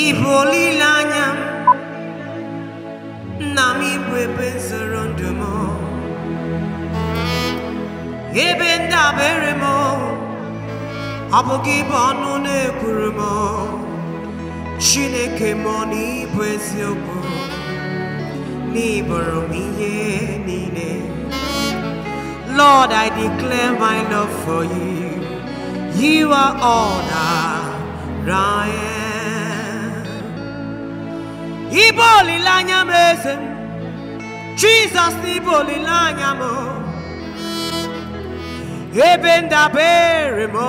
Ibolilanya na bwebe zoro ndụ mo, Ebe bere m Ọ bụghị ibe ọnụ mo, Chineke mo na ịbụ eziokwu n'ịbụrụ m ihe Lord, I declare my love for you. You are all that I am. Iboli lanya mlezem. Jesus iboli lanya mo. Ebe ndabere mo.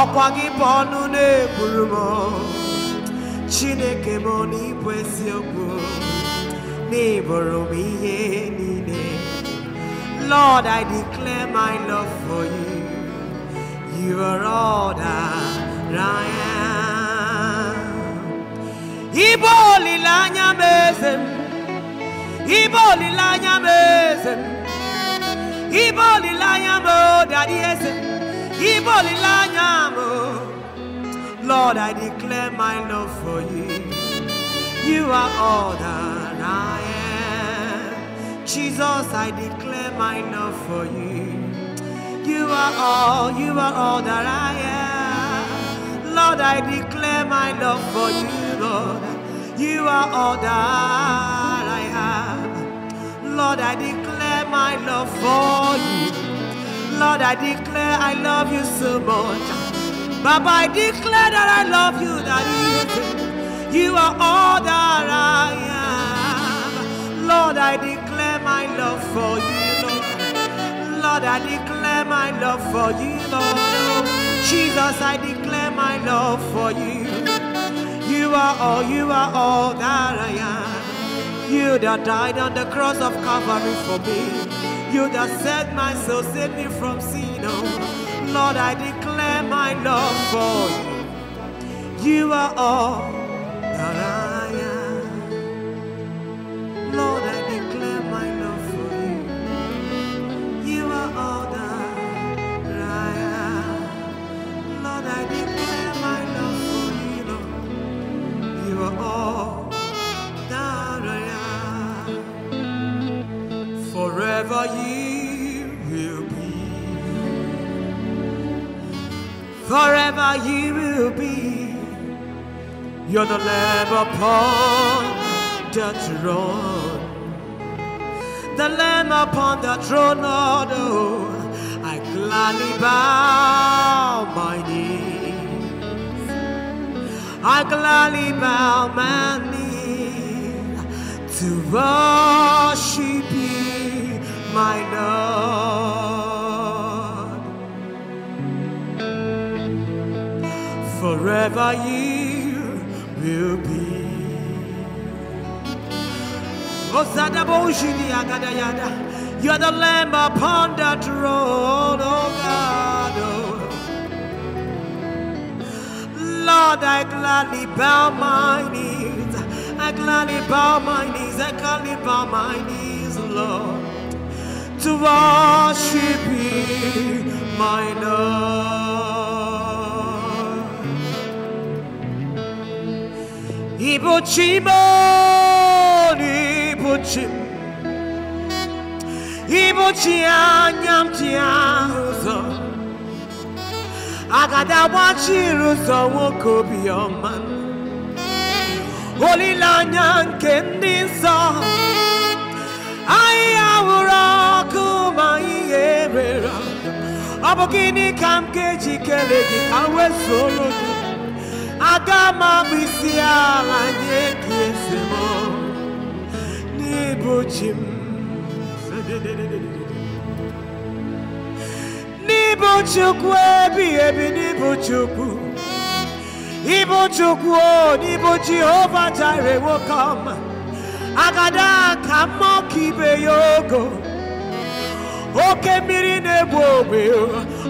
akwagi gi gị bụ Chineke mo n'ịbụ eziokwu. N'ịbụrụ m ihe Lord, I declare my love for you. You are all that I am. Ibo olilanya mezem. Ibo olilanya mezem. Ibo olilanya mo daddy esem. Ibo olilanya mo. Lord, I declare my love for you. You are all that I am. Jesus, I declare my love for you. You are all, you are all that I am. Lord, I declare my love for you, Lord. You are all that I have. Lord, I declare my love for you. Lord, I declare I love you so much. Baba, I declare that I love you, that you, you are all that I am. Lord, I declare my love for you, Lord. Lord, I declare my love for you, Lord. Jesus, I declare my love for you. You are all, you are all that I am. You that died on the cross of Calvary for me. You that set my soul, saved me from sin, oh. Lord, I declare my love for you. You are all that I am. Forever you will be. Forever you will be. You're the lamb upon the throne. The lamb upon the throne, oh, I gladly bow my knee. I gladly bow my knee to worship you, my Lord. Forever you will be. You are the lamb upon the throne, oh God. Oh. Lord, I gladly bow my knees. I gladly bow my knees. I gladly bow my knees, Lord, to worship you, my Lord. Ibochimo, Ibochimo, Ibochimo, Ibochimo, Ibochimo, agadi agbachiri ụzọ nwoke obiọma olileanya nke ndị nsọ ahịhịa wụrụ ọkụ ma ihe mere ọ bụ gịnị ka m ga-eji gị ka m gị aga m abụ isi ala nye gị eze n'ịbụ chi Ibu Chukwu ebi ebi n'ibu Chukwu Ibu Chukwu o n'ibu Jehova jire nwoke ọma agada ka mmụọ oke miri nebo egbu ogbe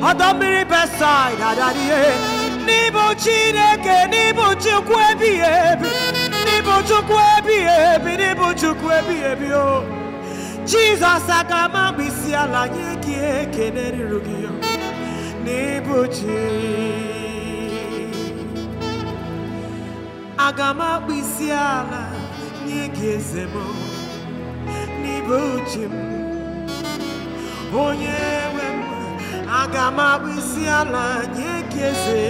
ọdọ mmiri besaid adarie n'ibu Chineke n'ibu Chukwu ebi ebi n'ibu Chukwu ebi ebi n'ibu Chukwu ebi ebi o Jizọs aga m agbisi ala nye gị ekele ruru gị নি বুঝি aga m akpụ isi ala nye gị eze m n'ibe uche m onye nwe m aga m akpụ isi ala nye gị eze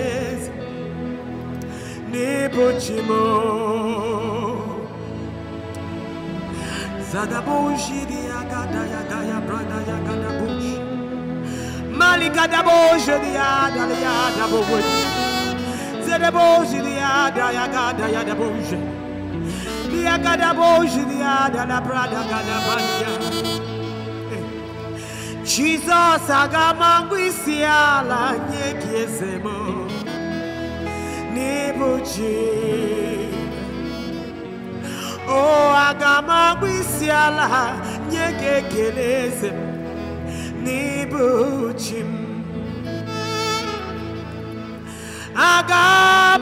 eze agada ya gaya brada ya gada Malika dabo jediya daliya dabo wood. Zedebo jediya daya gada ya dabo je. Dia gada bo jediya dala prada gada banya. Jesus agamangwisia la nyekiesemo. Nibuji. Oh agamangwisia la nyeke kelesemo. n'ibuchi m aga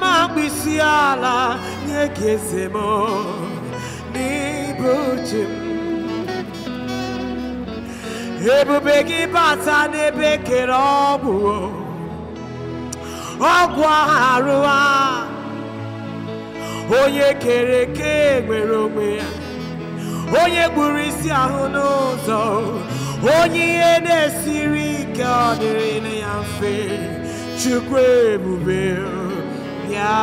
m mkpịsị ala nye gị m n'ibuchi m bata n'ebe kere ọgwụ ọgwụ arụ a onye kere eke nwere onwe ya onye gburu isi ahụ n'ụzọ onye ihe na-esiri ike ọ dịrị ya mfe chukwu ebube ya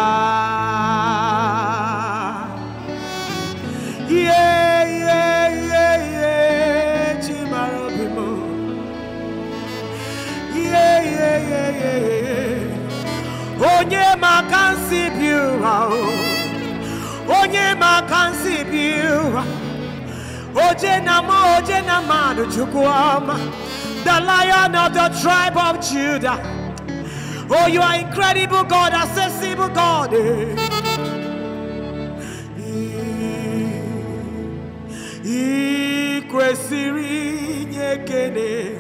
onye maka nsi bi oh. onye maka nsi bi Ojenama, Ojenama, the lion of the tribe of Judah. Oh, you are incredible God, accessible God. I kwesịrị inye ekele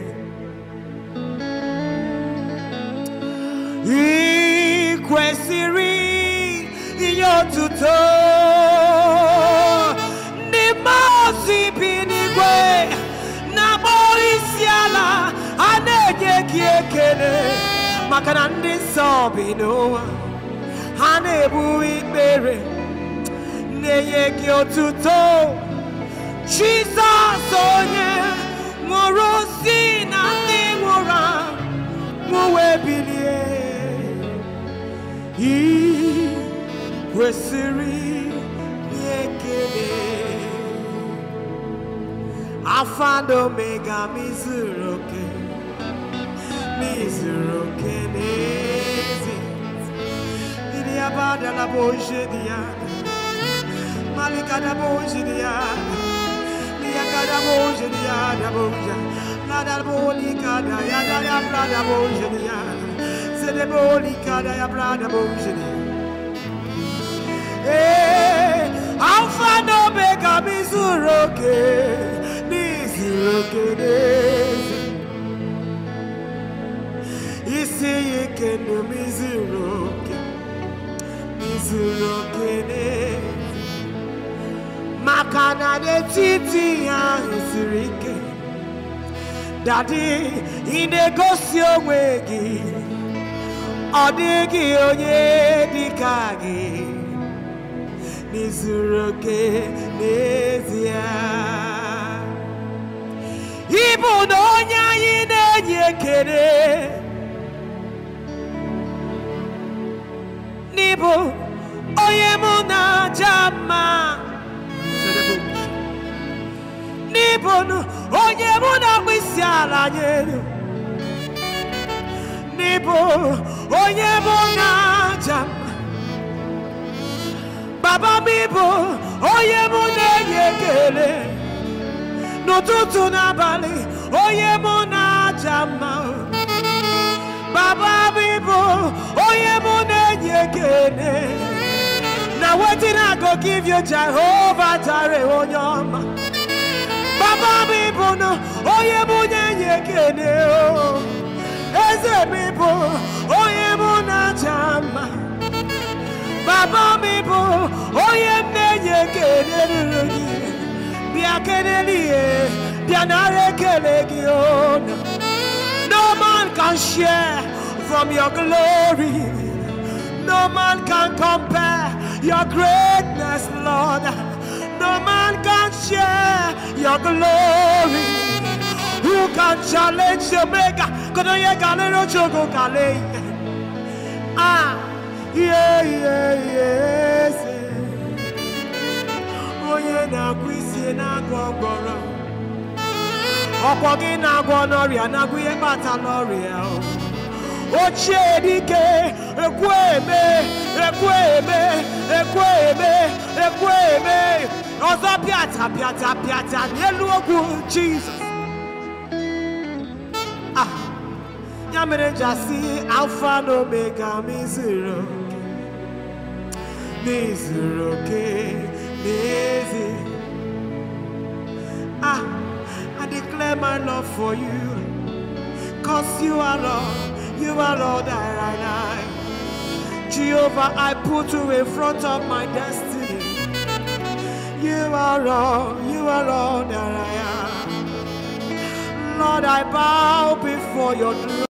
ị kwesịrị inye otuto ozi bi n'igwe na-akpọrọ isi ala a na-enye gị ekele maka na ndị nsọ bi n'ụwa ha na-ebu ikpere na-enye gị otuto Jizọs onye nwụrụ si na ndị nwụrụ anwụ wee bilie ị kwesịrị ekele Alpha and Omega, mi zuru oke, mi zuru oke n'ezi. Didi abada na boje diya, malika na boje diya, diya kada boje diya da boja, na da bolika da ya da ya brada boje diya, se de bolika da ya brada boje diya. Hey, eh, Alpha and Omega, mi zuru oke. Okay kegeze isi yikene miziroke mizirokene maka na n'etiti ya siri ike dadi ị na-egosi onwe gị ọ dịghị onye dịka gị n'izuru oke ịbụ na onye anyị na-enye ekele n'ịbụ onye mụ na-aja mma n'ịbụ onye mụ na-akpụ isi ala nyere n'ịbụ onye mụ na-aja mma baba m ịbụ onye mụ na-enye ekele n'ụtụtụ n'abalị onye mụ na-aja mma baba bịbụ onye mụ na-enye ekene na wetin i go give you Jehovah jare onye ọma baba bịbụ na onye mụ na-enye ekene o eze bịbụ onye mụ na-aja mma baba bịbụ onye m na-enye ekene ruru gị no man can share from your glory. No man can compare your greatness, Lord. No man can share your glory. Who can challenge your maker? Ah, yeah, yeah, Yeah. onye na agwụ isi na-agwọ ọgọrọ ọkwọ gị na-agwọ n'ọrịa na-agwọ ihe kpatara nọrịa ochie dike ekweme eme ekweme eme ọzọ pịata pịata pịata n'elu ogwu jizọs ah, ya mere jasi alfa na omega m izuru oke oke David. Ah, I declare my love for you. Cause you are Lord, you are Lord, that I am. Jehovah, I put you in front of my destiny. You are Lord, you are Lord, that I am. Lord, I bow before your throne.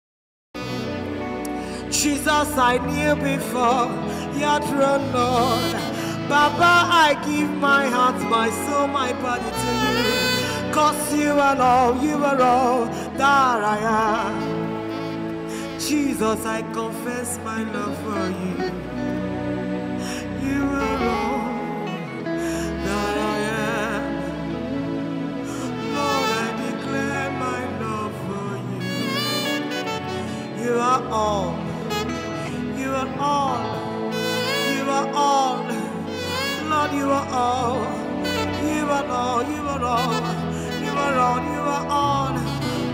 Jesus, I kneel before your throne, Lord. Baba, I give my heart, my soul, my body to you. Cause you are all, you are all that I am. Jesus, I confess my love for you. You are all that I am. Lord, I declare my love for you. You are all. You are all. You are all. Lord, you are all. You are all, you are all. You are all, you are all.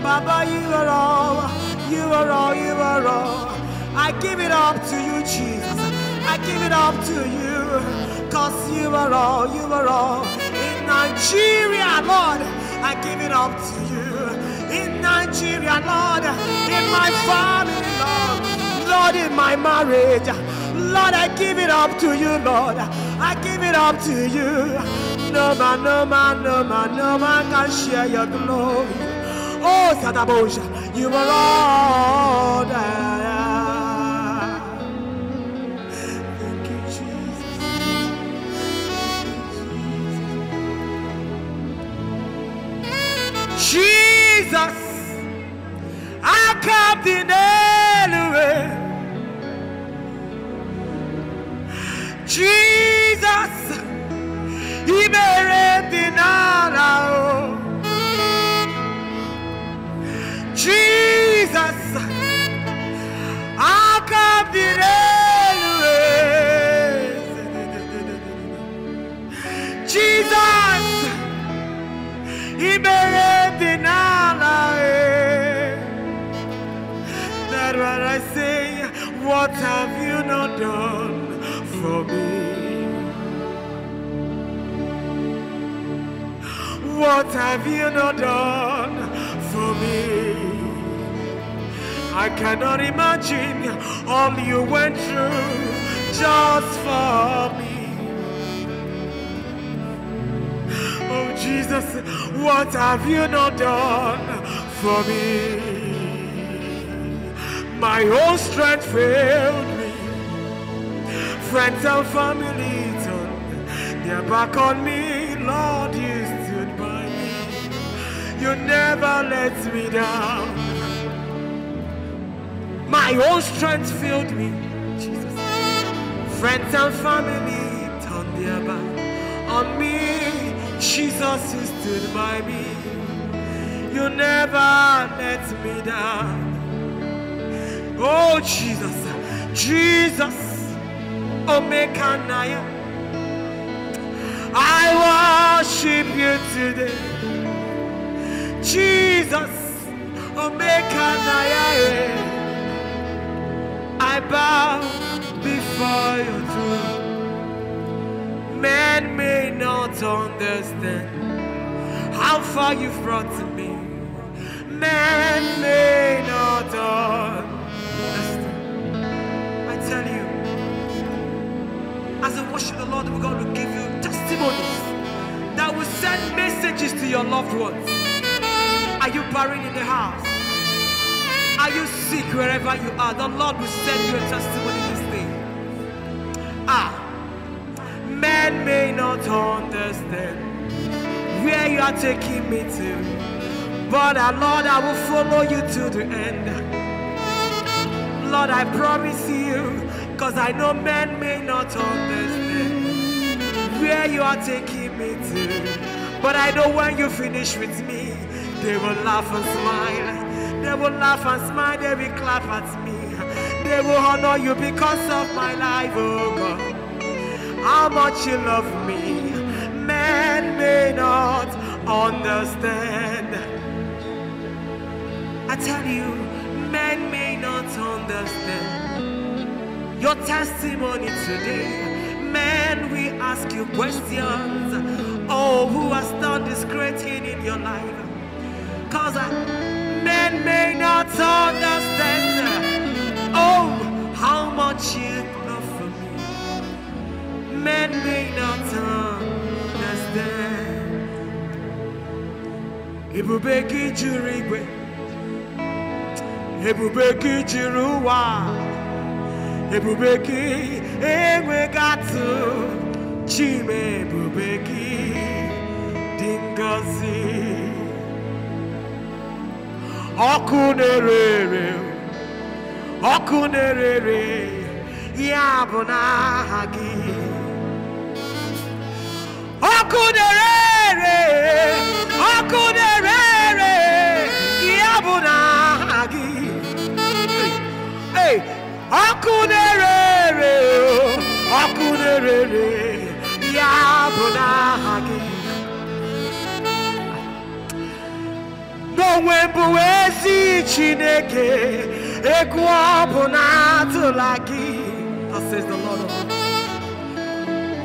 Baba, you are all. You are all, you are all. I give it up to you, Jesus. I give it up to you. Cause you are all, you are all. In Nigeria, Lord, I give it up to you. In Nigeria, Lord, in my family, Lord, Lord, in my marriage. Lord, I give it up to you, Lord. I give it up to you. No man, no man, no man, no man can share your glory. Oh, Satabosha, you are all that. Thank you, Jesus. Jesus, I come to Nelly. Jesus. Jesus ìbẹ̀rẹ̀ dìnnàlà o. Jesus Jesus That's I say. What have you not done for me? What have you not done for me? I cannot imagine all you went through just for me. Oh Jesus, what have you not done for me? My whole strength failed me. Friends and family turned their back on me, Lord, you you never let me down. My own strength filled me, Jesus. Friends and family turned their back on me. Jesus, you stood by me. You never let me down. Oh, Jesus, Jesus, Omega Naya. I worship you today. Jesus, I bow before your throne. Man may not understand how far you've brought to me. Man may not understand. I tell you, as a worship the Lord, we're going to give you testimonies that will send messages to your loved ones. Are you buried in the house? Are you sick wherever you are? The Lord will send you a testimony this day. Ah, men may not understand where you are taking me to, but uh, Lord, I will follow you to the end. Lord, I promise you, because I know men may not understand where you are taking me to, but I know when you finish with me. They will laugh and smile. They will laugh and smile. They will clap at me. They will honor you because of my life, oh God. How much you love me, men may not understand. I tell you, men may not understand. Your testimony today, Men we ask you questions. Oh, who has done this great thing in your life? Cause men may not understand Oh, how much you love for me Men may not understand Ebube gị juru igwe Ebube gị juru ụwa Ebube gị chime atụ Chima dingazi. gị ọkụ na-ere ere ọkụ na-ere ere ya bụ n'aha gị ọkụ na-ere ere ọkụ na-ere ere ya bụ n'aha onwe bụ ezi chineke egwu ọ bụ na-atụla gị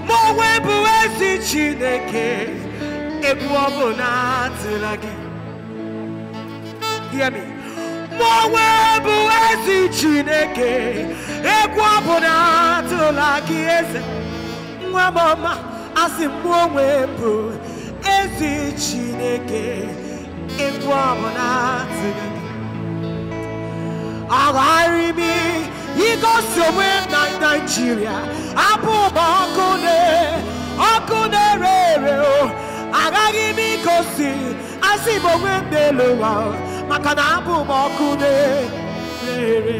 ma onwe bụ ezi chineke egwu ọ bụ na-atụla gị hear me ma onwe chineke egwu o bụ na-atụla gị eze nwa m ọma asị m onwe bụ ezi chineke ekwamanaziga aghara imi igosi onwe na naijiria abụ ụba ọkụ na ọkụ na-ere ere o agaghị m igosi asị m onwe m n'elu ụwa maka na abụ m ọkụ na-ere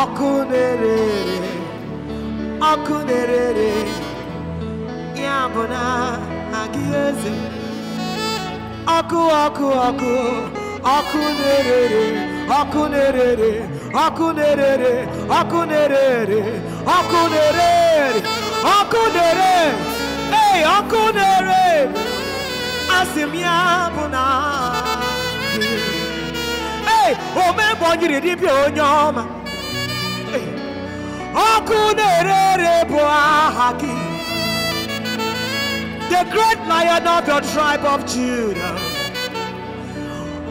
ọkụ na-ere ere ọkụ na-ere ere ya bụ na agịghị eze ọkụ ọkụ ọkụ ọkụ na-erere ọkụ na-erere ọkụ na-erere ọkụ na-erere ọkụ na-erere ọkụ na-ere ee ọkụ na-ere asị m ya bụ na ee omebonyiri the great lion of your tribe of Judah.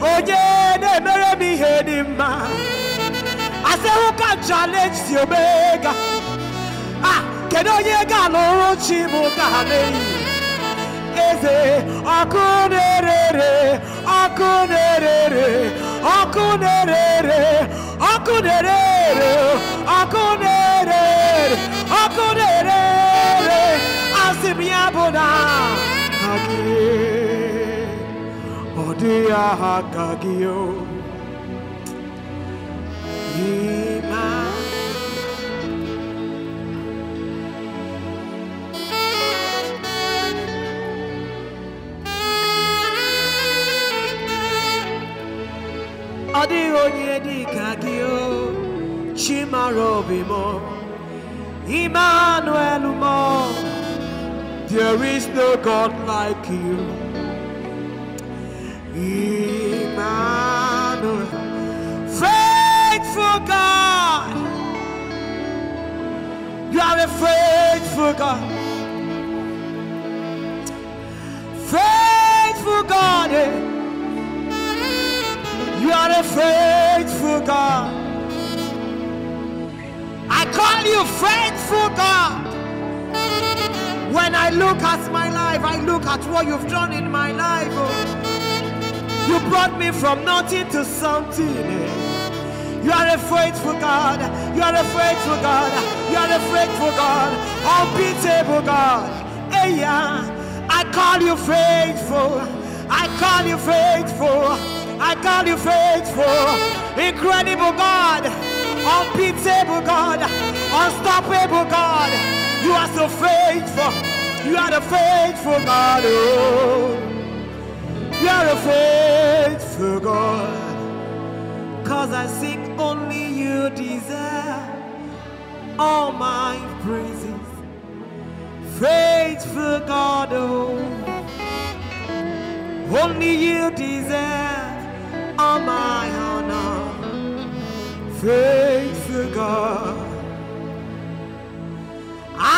Oh yeah, emere m ihe dị who can challenge the Omega? Ah, kedu onye ga-alụrụ chi Eze akunere, akunere, akunere, akunere, akunere biabona agie odia hakagio ima Adi di kagio chimaro bimo Emmanuel mo there is no God like you. Emmanuel, faithful God. You are a faithful God. Faithful God. Eh? You are a faithful God. I call you faithful God. When I look at my life, I look at what you've done in my life. Oh. You brought me from nothing to something. Eh. You are a faithful God. You are a faithful God. You are a faithful God. Unbeatable God. Hey, yeah. I call you faithful. I call you faithful. I call you faithful. Incredible God. Unbeatable God. Unstoppable God. You are so faithful. You are the faithful God. Oh. You are a faithful God. Cause I sing only you deserve all my praises. Faithful God. Oh. Only you deserve all my honor. Faithful God.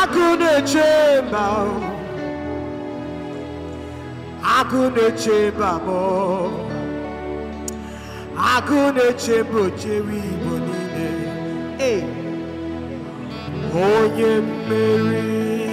agụ na-eche mba agụ na-eche mba m agụ na-eche mba ochewe igbo niile onye mmeri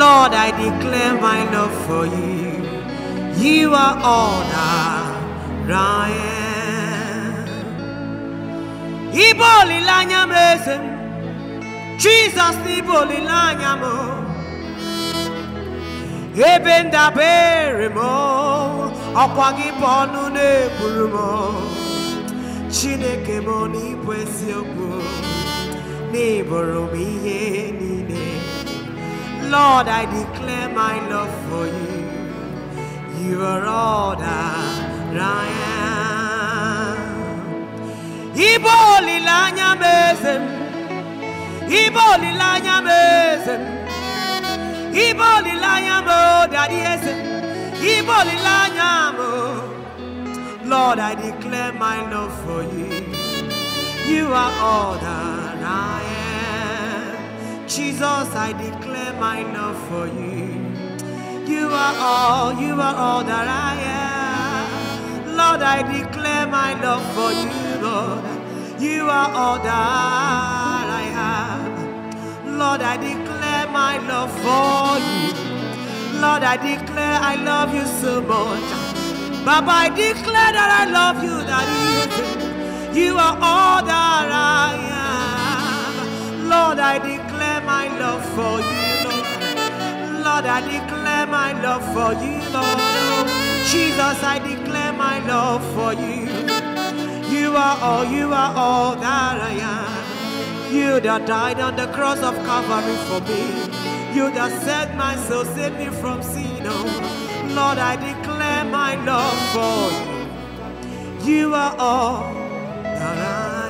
Lord, I declare my love for you. You are all that I am. Iboli lanya mesem, Jesus iboli lanya mo. Ebenda beremo, akwagi bonu ne burumo. Chineke mo ni pwesi okwo. Neighbor, Lord, I declare my love for you. You are all that I am. Ibo lilanya mezem. Ibo lilanya mezem. Ibo lilanya mo daddy iboli la lilanya mo. Lord, I declare my love for you. You are all that than I am. Jesus, I declare my love for you. You are all, you are all that I am. Lord, I declare my love for you, Lord. You are all that I have. Lord, I declare my love for you. Lord, I declare I love you so much. Baba, I declare that I love you, that you, you are all that I am. Lord, I declare my love for you, Lord. Lord, I declare my love for you, Lord. Jesus, I declare my love for you. You are all, you are all that I am. You that died on the cross of Calvary for me. You that set my soul, saved me from sin. Oh, Lord, I declare my love for you. You are all that I am.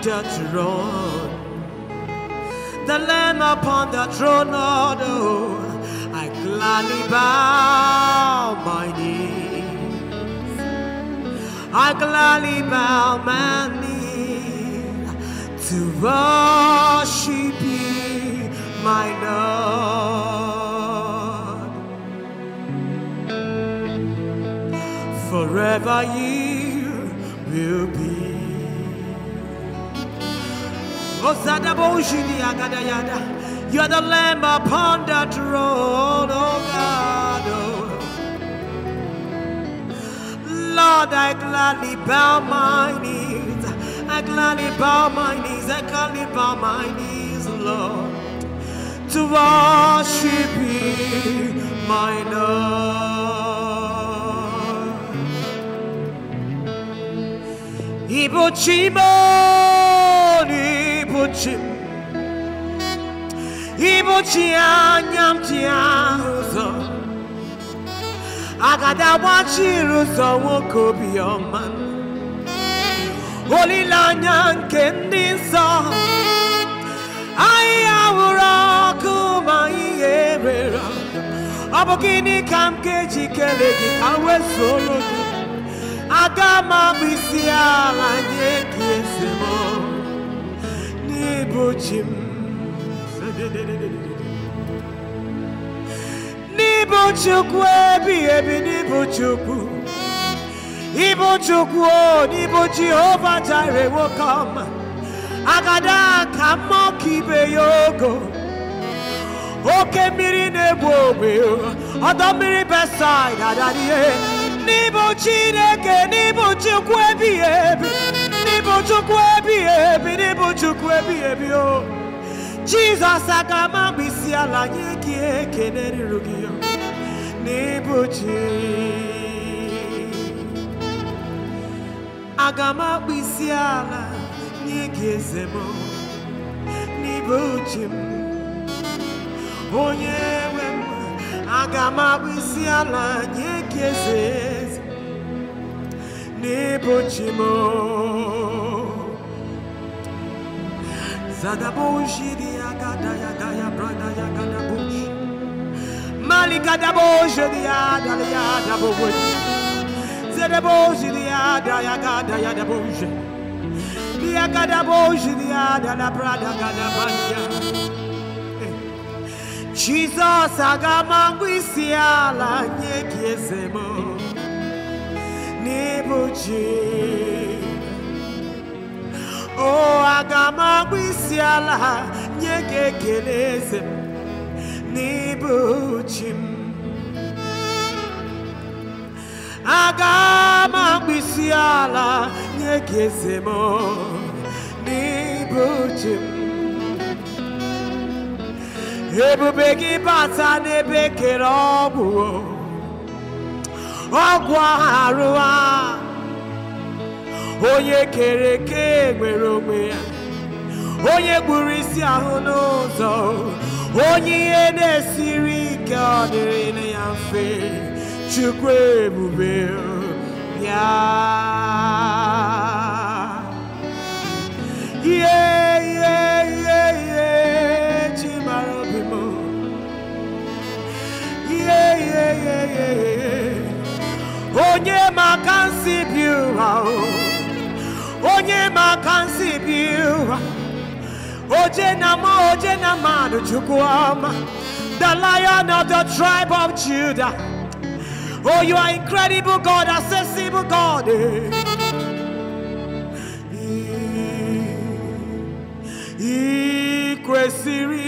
The throne, The lamb upon the throne, Lord, oh, I gladly bow my knee. I gladly bow my knee to worship you, my Lord. Forever you will be. You are the lamb upon the throne, oh God. Lord, I gladly bow my knees. I gladly bow my knees. I gladly bow my knees, Lord, to worship you, my Lord. Ibo ibuchi ibuchi anya m ji agada agbachiri ụzọ nwoke obiọma olileanya nke ndị nsọ anyị ahụrụ ọkụ ma ihe mere ọ bụ gịnị ka m ga ala nye gị Nibuchim Nibuchukwu ebi ebi Nibuchukwu Ibuchukwu o Nibu Jehova Jireh will come Agada ka mmụọ ka ibe ya ogo Oke mmiri na-egbu ogbe ọdọ mmiri Besaid adadie Chineke Nibu Chukwu ebi ebi Gịnị bụ Chukwu ebighị ebi? Gịnị bụ Chukwu ebighị ebi o? Jizọs aga m agba isi ala nye gị ekele ruru gị n'ịbụ chi. Aga agba isi ala nye gị eze m n'ịbụ chi m. Onye nwe m aga m agba isi ala nye eze. Nebochimo Zadaboshi diagada yagaya ya yagada bush Maligada boshi diada yada bush Zadaboshi ya yagada yada bush Diagada boshi diada la brada gada banya Jesus agamangwisiala nyekiezemo n'ịbụchi o aga m agbụ isi ala nye gị ekele eze m n'ịbụchi m aga m isi ala nye gị eze m n'ịbụchi m ebube gị bata n'ebe ekele ọ bụ ọgwụ arụ a onye kere eke nwere onwe ya onye gburu isi ahụ n'ụzọ onye ihe na-esiri ike ọ dịrị ya mfe chukwu ebube ya ihe ihe ihe ihe chi mara obi m ihe ihe ihe ihe onye maka nsibi ụra onye maka nsibi ụra oje na ma oje na mmadụ chukwu ọma the lion of the tribe of judah oh you are incredible god accessible god ị kwesịrị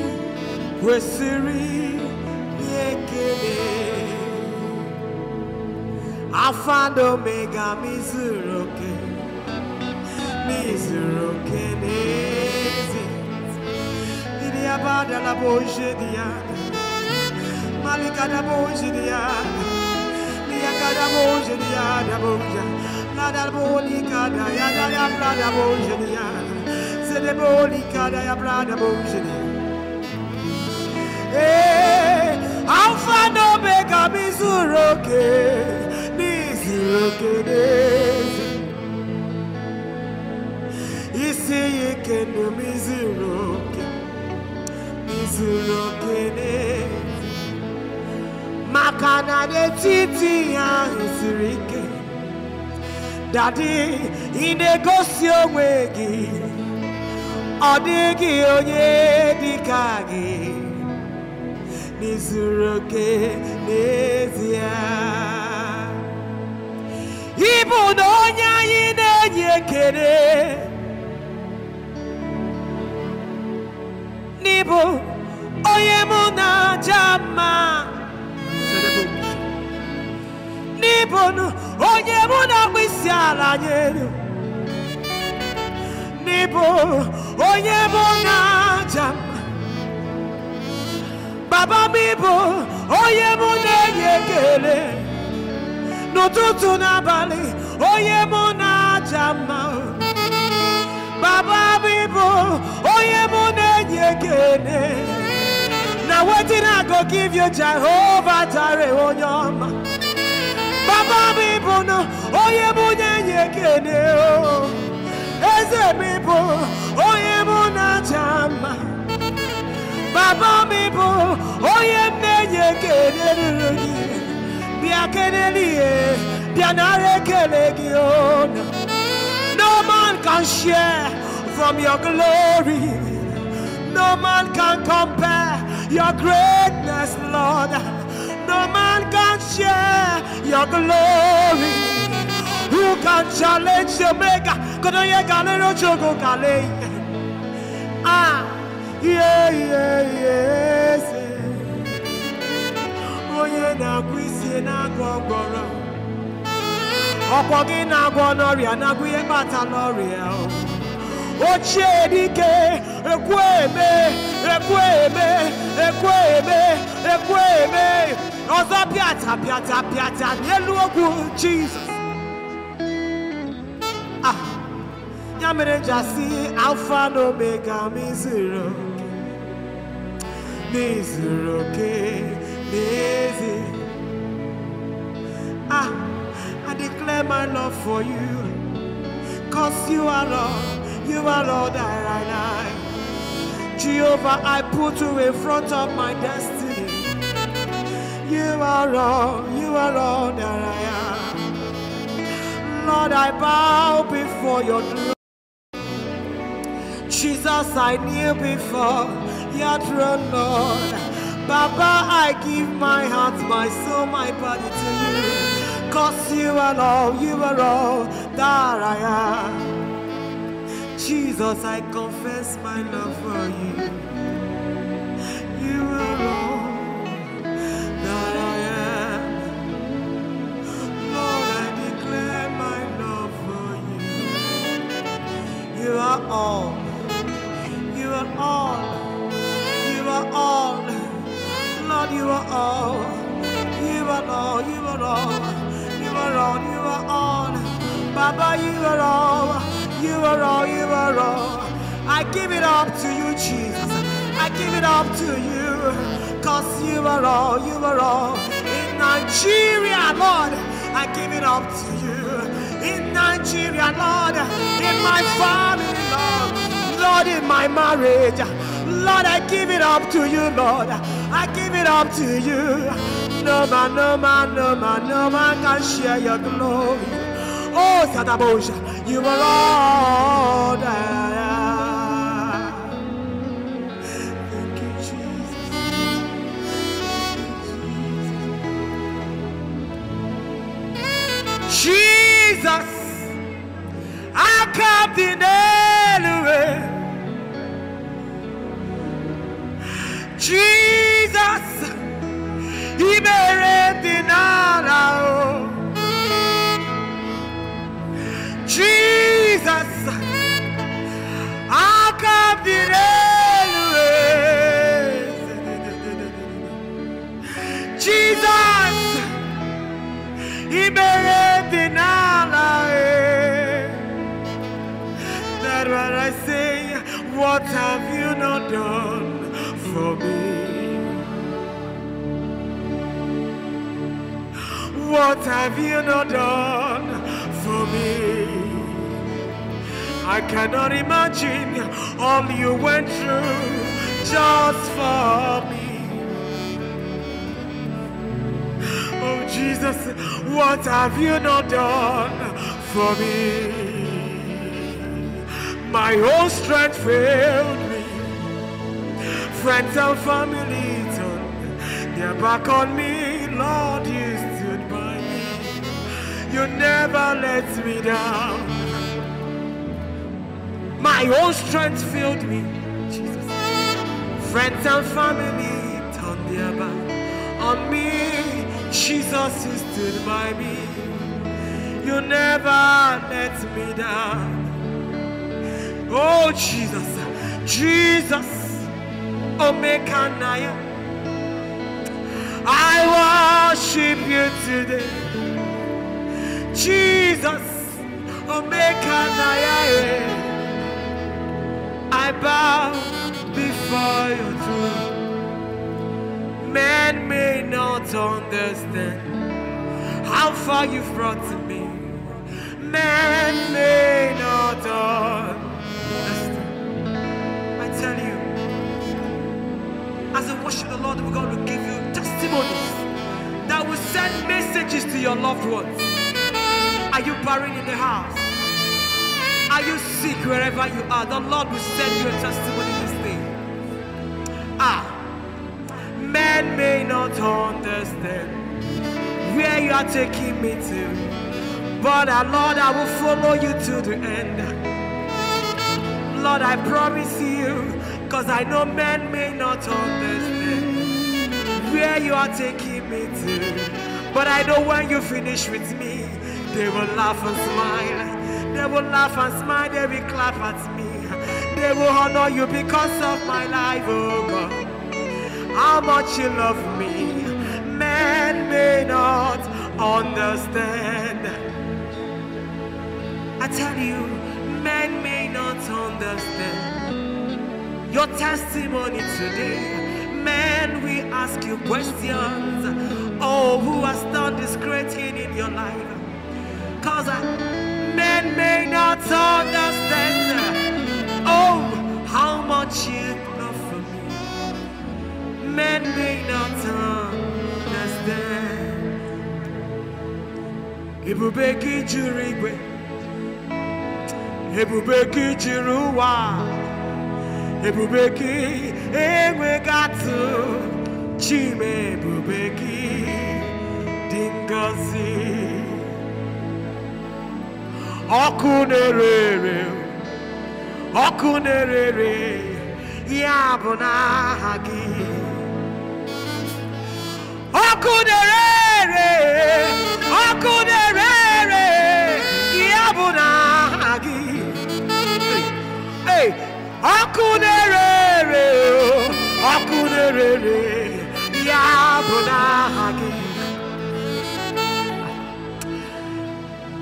Wesiri ihe ekele mega mizuroke mizuroke n'ezi ndị abada na boje dị malika da boje dị ya niyaka da boje dị ya boje na da bolika da ya da ya bra da boje dị ya zede bolika da ya bra boje dị ee eh, alfa na omega m izuru oke n'izuru oke n'ezi isi ya ike na m izuru oke izuru oke n'ezi maka na n'etiti ya ahụ siri ike dadi ị na-egosi onwe gị ọ dịghị onye dị ka gị n'izuru oke n'ezie ịbụ na onye anyị na-enye ekele n'ịbụ onye mụ na n'ịbụ onye mụ n'ịbụ onye mụ baba m ịbụ onye m na-enye ekele n'ụtụtụ n'abalị onye m na-aja baba m ịbụ onye m na-enye ekele na wetin I go give you Jehovah jare onye oh, baba m ịbụ na onye yekele, na-enye ekele o eze m ịbụ onye m na Baba bia bia nare No man can share from your glory. No man can compare your greatness, Lord. No man can share your glory. Who can challenge the maker? Ah. ihe ihe ihe eze onye na-agwọ isi na-agwọ ọgbọrọ ọkwọ gị na-agwọ n'ọrịa na ihe kpata n'ọrịa ochie dike ekwe eme ekwe eme ekwe eme ekwe eme ọzọ pịata pịata pịata n'elu ogwu jizọs ah, ya mere ji asị alfa na omega m n'ezuru oke n'ezi ah i declare my love for you cause you are Lord, you are Lord, that i am jehovah i put you in front of my destiny you are Lord, you are Lord, that i am lord i bow before your throne jesus i kneel before your throne, Lord. Baba, I give my heart, my soul, my body to you. Cause you are all, you are all that I am. Jesus, I confess my love for you. You are all that I am. Lord, I declare my love for you. You are all. You are all are all. Lord, you are all. You are all. You are all. You are all. You are all. Baba, you are all. You are all. You are all. I give it up to you, Jesus. I give it up to you. Cause you are all. You are all. In Nigeria, Lord, I give it up to you. In Nigeria, Lord, in my family, Lord, Lord, in my marriage. Lord, I give it up to you, Lord. I give it up to you. No man, no man, no man, no man can share your glory. Oh, Sadabosha, you are Lord. Thank you, Jesus. Jesus, I come in you. Jesus o Jesus akabire Jesus ìbéèrè e. That's what I say. What have you not done? for me? What have you not done for me? I cannot imagine all you went through just for me. Oh Jesus, what have you not done for me? My whole strength failed friends and family turned their back on me. Lord, you stood by me. You never let me down. My own strength filled me, Jesus. Friends and family turned their back on me. Jesus, you stood by me. You never let me down. Oh, Jesus, Jesus. Omekanaya. I worship you today. Jesus, Omekanaya. I bow before your throne. Man may not understand how far you've brought to me. Man may not understand as we worship the Lord, we're going to give you testimonies that will send messages to your loved ones. Are you buried in the house? Are you sick wherever you are? The Lord will send you a testimony this day. Ah, men may not understand where you are taking me to, but uh, Lord, I will follow you to the end. Lord, I promise you Cause I know men may not understand where you are taking me to. But I know when you finish with me, they will laugh and smile. They will laugh and smile, they will clap at me. They will honor you because of my life, oh God. How much you love me, men may not understand. I tell you, men may not understand your testimony today. Man, we ask you questions. Oh, who has done this great thing in your life? Because uh, men may not understand. Oh, how much you love for me. Men may not understand. Ebube gị jiri igwe, ebube gị jiri ụwa ebube gị enweghị atụ chime ebube gị dị ngọzi ọkụ na-ere ere ọkụ na-ere ere ya bụ n'aha gị ọkụ na-ere ere oku na-ere ya bụ n'aha gị ọkụ na-ere ere ere ya bụ n'aha gị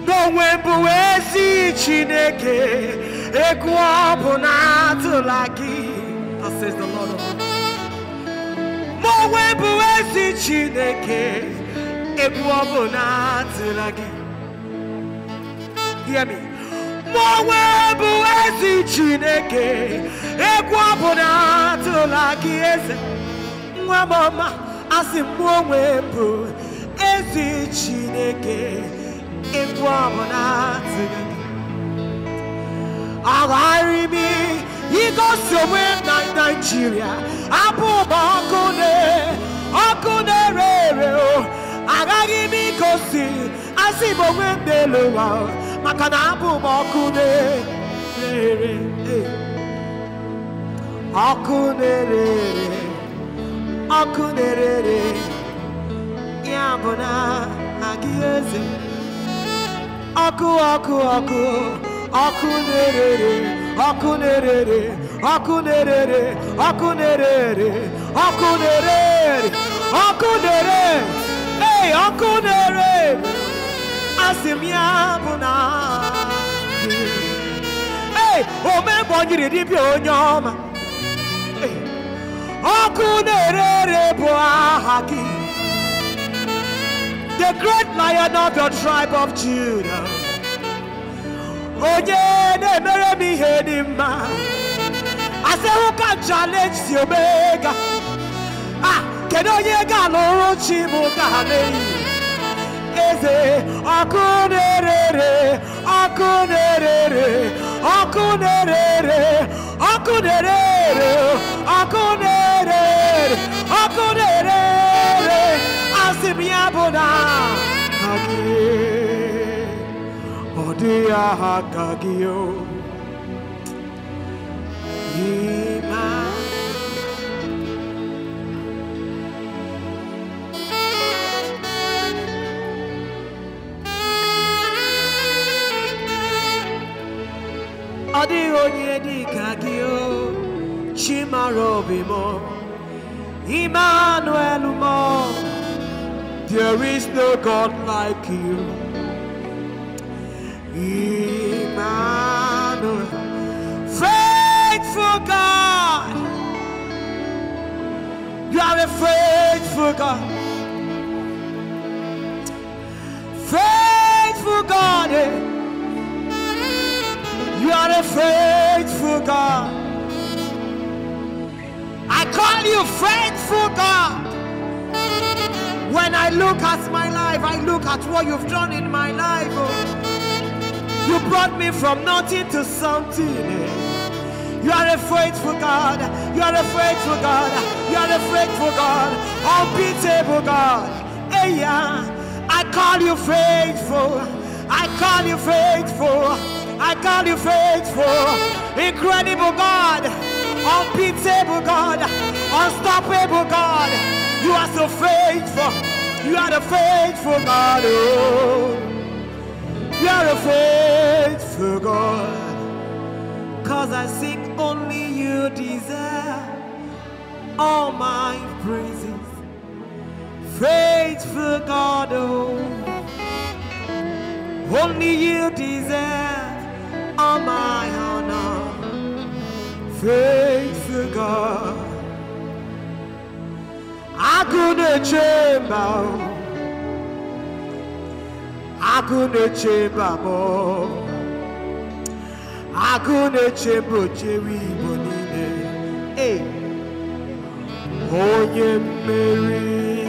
n'onwe bụ ezi chineke egwu ọ bụ na-atụla gị n'onwe bụ chineke egwu o hear me onwe bụ ezi chineke egwu ọbụla atụla gị eze nwa m ọma asị m onwe bụ ezi chineke egwu ọbụla atụla gị agharị m na naijiria abụ ụba ọkụ na oku o agaghị m ịgosi asị m onwe m n'elu ụwa maka na abụ m ọkụ na-ere ọkụ na-ere ere ọkụ na-ere ere ya bụ na agị eze ọkụ ọkụ ọkụ ọkụ na-ere ere ọkụ na-ere ere ọkụ na-ere ere ọkụ na-ere ere ọkụ na-ere ere ọkụ na-ere ere hey ọkụ na-ere asị m ya bụ na ee omebonyiri dibịa onye ọma ọkụ na-ere ere bụ aha gị the great lion of your tribe of Judah onye na-emere m ihe I mma Who can challenge the omega ah kedu onye ga-alụrụ chi bụ ka ha na-eyi eze ọkụ na-erere ọkụ na-erere ọkụ na-erere ọkụ asị m ya bụ na ha gị ọ ọ dịghị onye dị ka gị Emmanuel m there is no God like you Emmanuel faithful God you are a faithful God faithful God eh? You are a faithful God. I call you faithful God. When I look at my life, I look at what you've done in my life. Oh. You brought me from nothing to something. Eh. You are a faithful God. You are a faithful God. You are a faithful God. Unbeatable God. Hey, yeah. I call you faithful. I call you faithful. I call you faithful, incredible God, unbeatable God, unstoppable God. You are so faithful. You are the faithful God. Oh, you are a faithful God. Cause I sing only you deserve all my praises. Faithful God, oh, only you deserve. On my honor, faithful God. I couldn't chamber, I couldn't chamber more. I couldn't change chamber, Jerry Bonine. Hey, oh, yeah, Mary.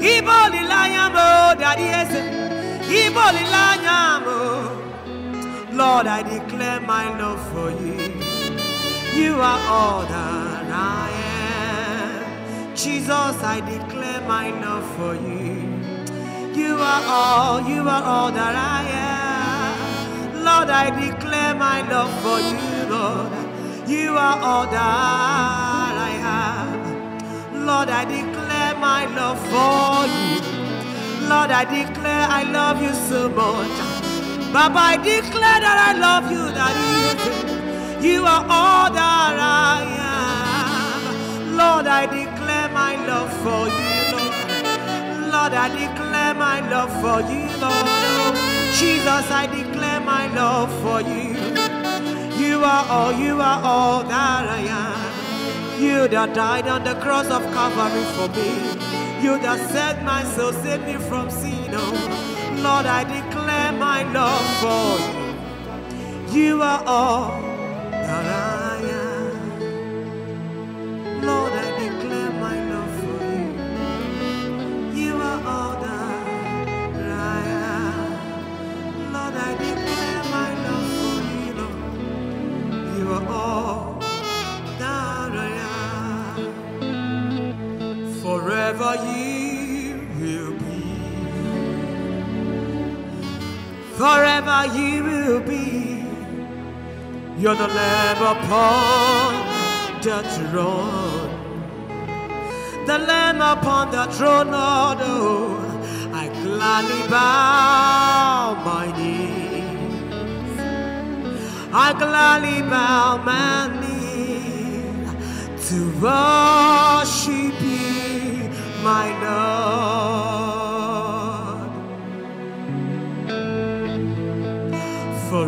Ibolilanya mo, Daddy Ese. Lord, I declare my love for you. You are all that I am. Jesus, I declare my love for you. You are all, you are all that I am. Lord, I declare my love for you, Lord. You are all that I have. Lord, I declare my love for you. Lord, I declare I love you so much. Baba, I declare that I love you, that you, you are all that I am. Lord, I declare my love for you, Lord. Lord, I declare my love for you, Lord. Jesus, I declare my love for you. You are all, you are all that I am. You that died on the cross of Calvary for me. You that set my soul, save me from sin. Oh, Lord, I declare my love for you. You are all that I forever you will be. You're the Lamb upon the throne, the Lamb upon the throne, Lord. Oh, I gladly bow my knee. I gladly bow my knee to worship you, my Lord.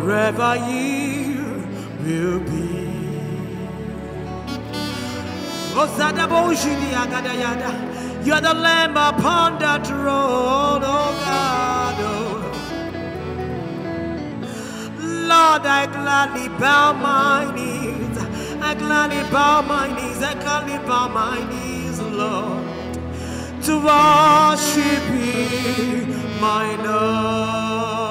wherever you will be. You are the lamb upon that throne, oh God. Lord, I gladly bow my knees. I gladly bow my knees. I gladly bow my knees, Lord, to worship you, my Lord.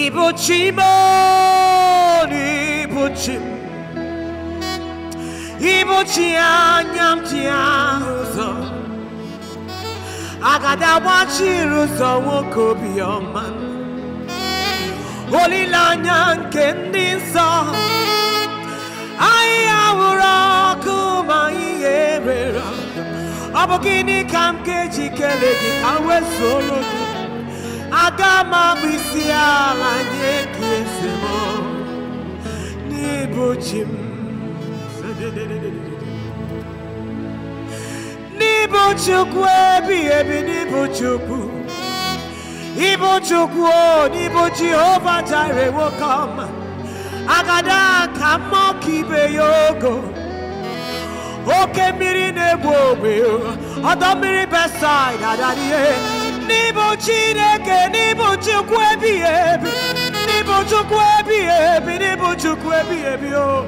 이 보지만 이 보지 이 보지 않냠지 않으서 아가다 와치로서 워코비어만 올리라냥 겐딘서 아이아우라 그마이 예배라 아버기니 감게 지켜내기 가외 소로도 agama bisia manye kiesemo nibuchim nibuchukwu ebi ebi nibuchukwu ibuchukwu o nibu jehova jire wokom agada ka mmọ ka ibe ya ogo oke mmiri na-egbu ogbe ọdọ mmiri n'ịbụ chineke n'ịbụ chukwu ebighị ebi n'ịbụ chukwu ebighị ebi n'ịbụ chukwu ebighị ebi o oh.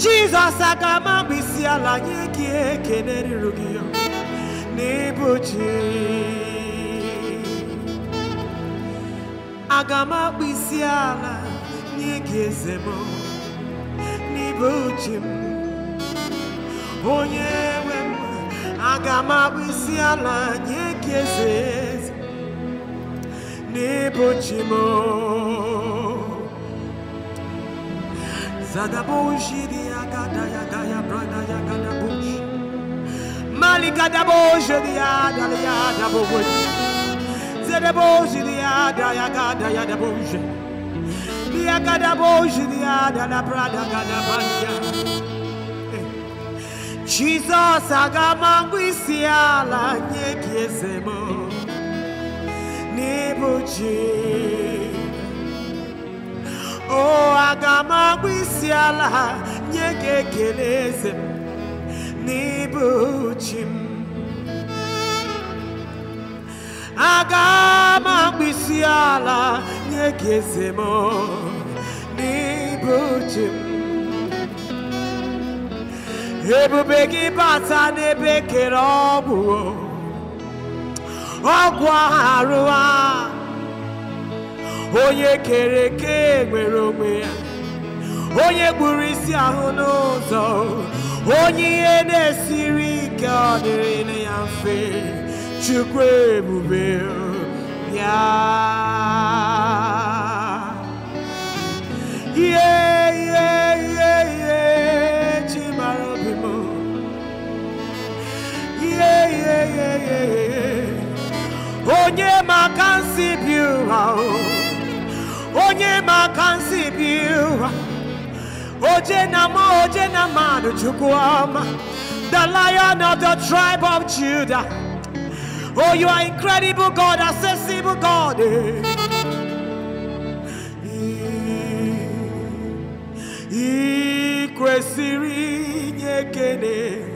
jizọs aga ama ala nye gị ekele ruru gị n'ịbụ chi ala nye gị eze m onye nwe aga m abụ isi ala nye gị eze eze n'ịbụchi m ya brada ya gada bush mali gada boshidi ya dali ya dabo bush zadaboshidi ya daya gada ya dabo bush Dia gada boshidi ya dala brada gada banya Jizọs agama mgbe isi ala nye gị eze m n'ịbụ ji o agama mgbe isi ala nye gị ekele eze ebube gị bata n'ebe kere ọgwụ ọgwụ arụ a onye kere eke nwere onwe ya onye gburu isi ahụ n'ụzọ onye ihe na-esiri ike ọ dịrị ya mfe chukwu ebube ya Onye maka nsi biura Onye maka nsi biura Oje na ma oje na manu chukwuoma The lion of the tribe of Judah Oh you are incredible God, accessible God I kwesịrị inye ekele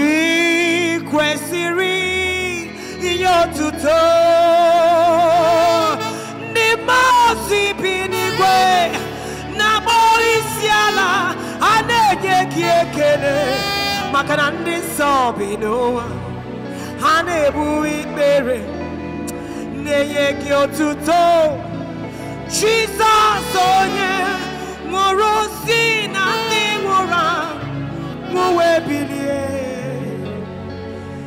ị kwesịrị inye otuto ndị mmụọ bi n'igwe na-akpọ isi ala a na-enye gị ekele maka na ndị nsọ bi n'ụwa ha na-ebu ikpere na-enye gị otuto Jizọs onye nwụrụ si na ndị nwụrụ bilie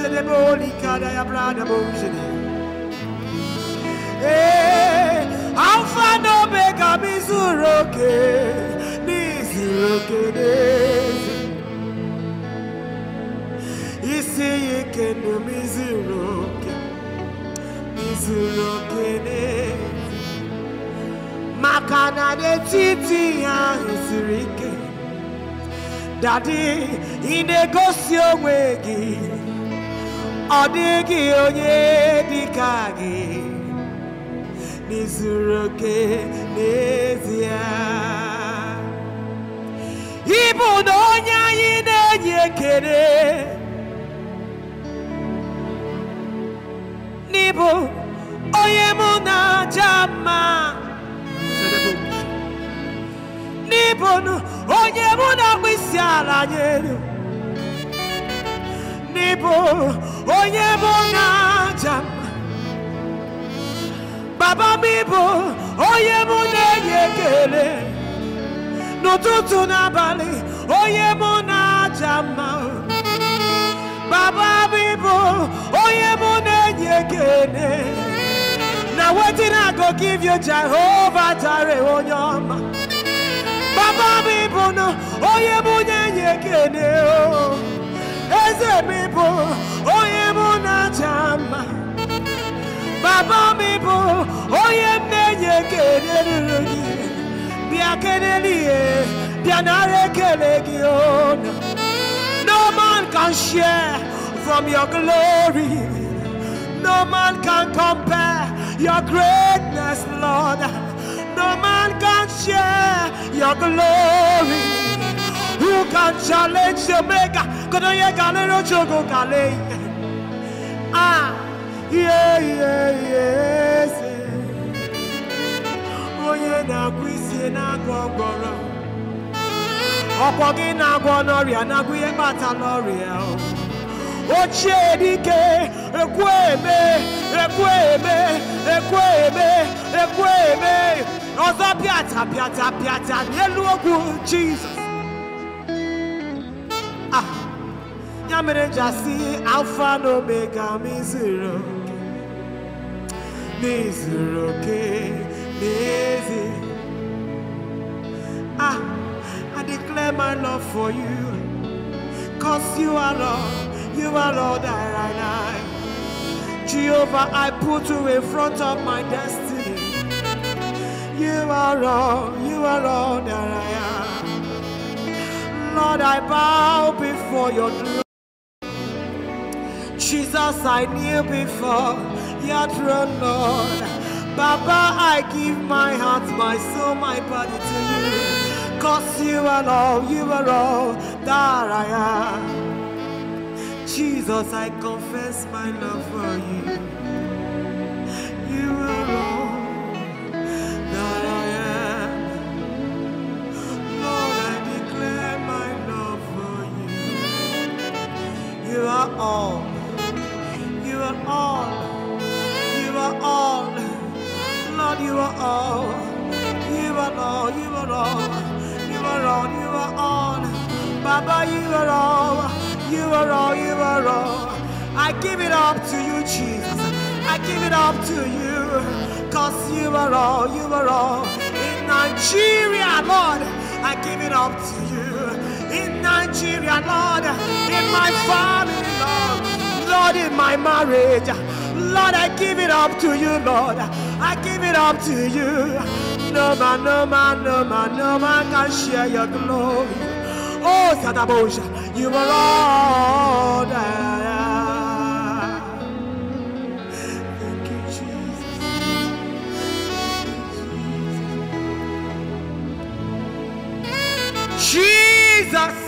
se de boli kada ya brada bojene. Eh, alfa no mizuroke, mizuroke nezi. Isi yike mizuroke, mizuroke Makana de titi ya isirike. Daddy, in ọ dịghị onye dị ka gị n'izuru oke n'ezie ịbụ na onye anyị na-enye ekele n'ịbụ onye mụ na-aja mma n'ịbụ onye mụ na-akpụ isi ala nyelu n'ịbụ onye bụ onye aja m baba m ịbụ onye mụ na-enye ekele n'ụtụtụ n'abalị onye mụ na-aja mma baba m ịbụ onye mụ na-enye ekele na wetin I go give you Jehovah Jireh onye ọma baba m ịbụ na onye mụ na-enye ekele o oh. As a people, onye mụ Baba people, bụ onye m na-enye ekele ruru gị bịa No man can share from your glory No man can compare your greatness, Lord No man can share your glory who can challenge the maker? Kodoye galero chogo kale. Ah, yeah, yeah, yes. Onye na-agwụ isi na-agwọ ọgbọrọ. Ọkwọ gị na-agwọ n'ọrịa na-agwụ ihe kpata n'ọrịa. Ochie dike, ekwu eme, ekwu eme, ekwu eme, ekwu eme. Ọzọ pịata pịata pịata n'elu okwu Jizọs. ya mere ji asị omega ma izuru oke n'izuru oke n'ezi ah i declare my love for you cause you are Lord, you are lord that i like jehovah i put you in front of my destiny you are Lord, you are all that i am Lord, I bow before your throne. Jesus, I knew before your throne, Lord. Baba, I give my heart, my soul, my body to you. Cause you are all, you are all that I am. Jesus, I confess my love for you. You are all that I am. Lord, I declare my love for you. You are all are all. You are all. Lord, you are all. You are all. You are all. You are all. You are all. Baba, you are all. You are all. You are all. I give it up to you, Jesus. I give it up to you. Cause you are all. You are all. In Nigeria, Lord, I give it up to you. In Nigeria, Lord, in my family, Lord. Lord, in my marriage. Lord, I give it up to you, Lord. I give it up to you. No man, no man, no man, no man can share your glory. Oh, Sadabosha, you are Lord. Thank you, Jesus. Thank you, Jesus. Jesus.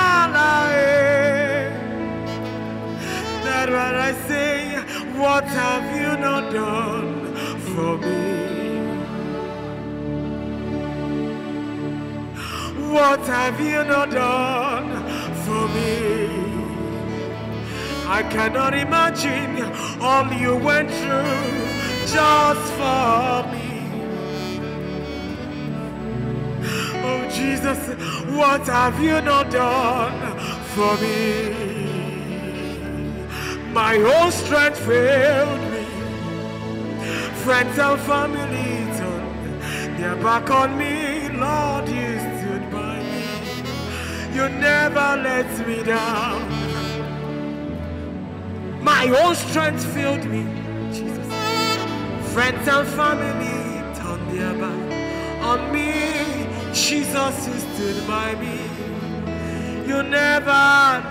Lord, I say, what have you not done for me? What have you not done for me? I cannot imagine all you went through just for me. Oh Jesus, what have you not done for me? My whole strength failed me. Friends and family turned their back on me. Lord, you stood by me. You never let me down. My whole strength failed me. Jesus. Friends and family turned their back on me. Jesus, you stood by me. You never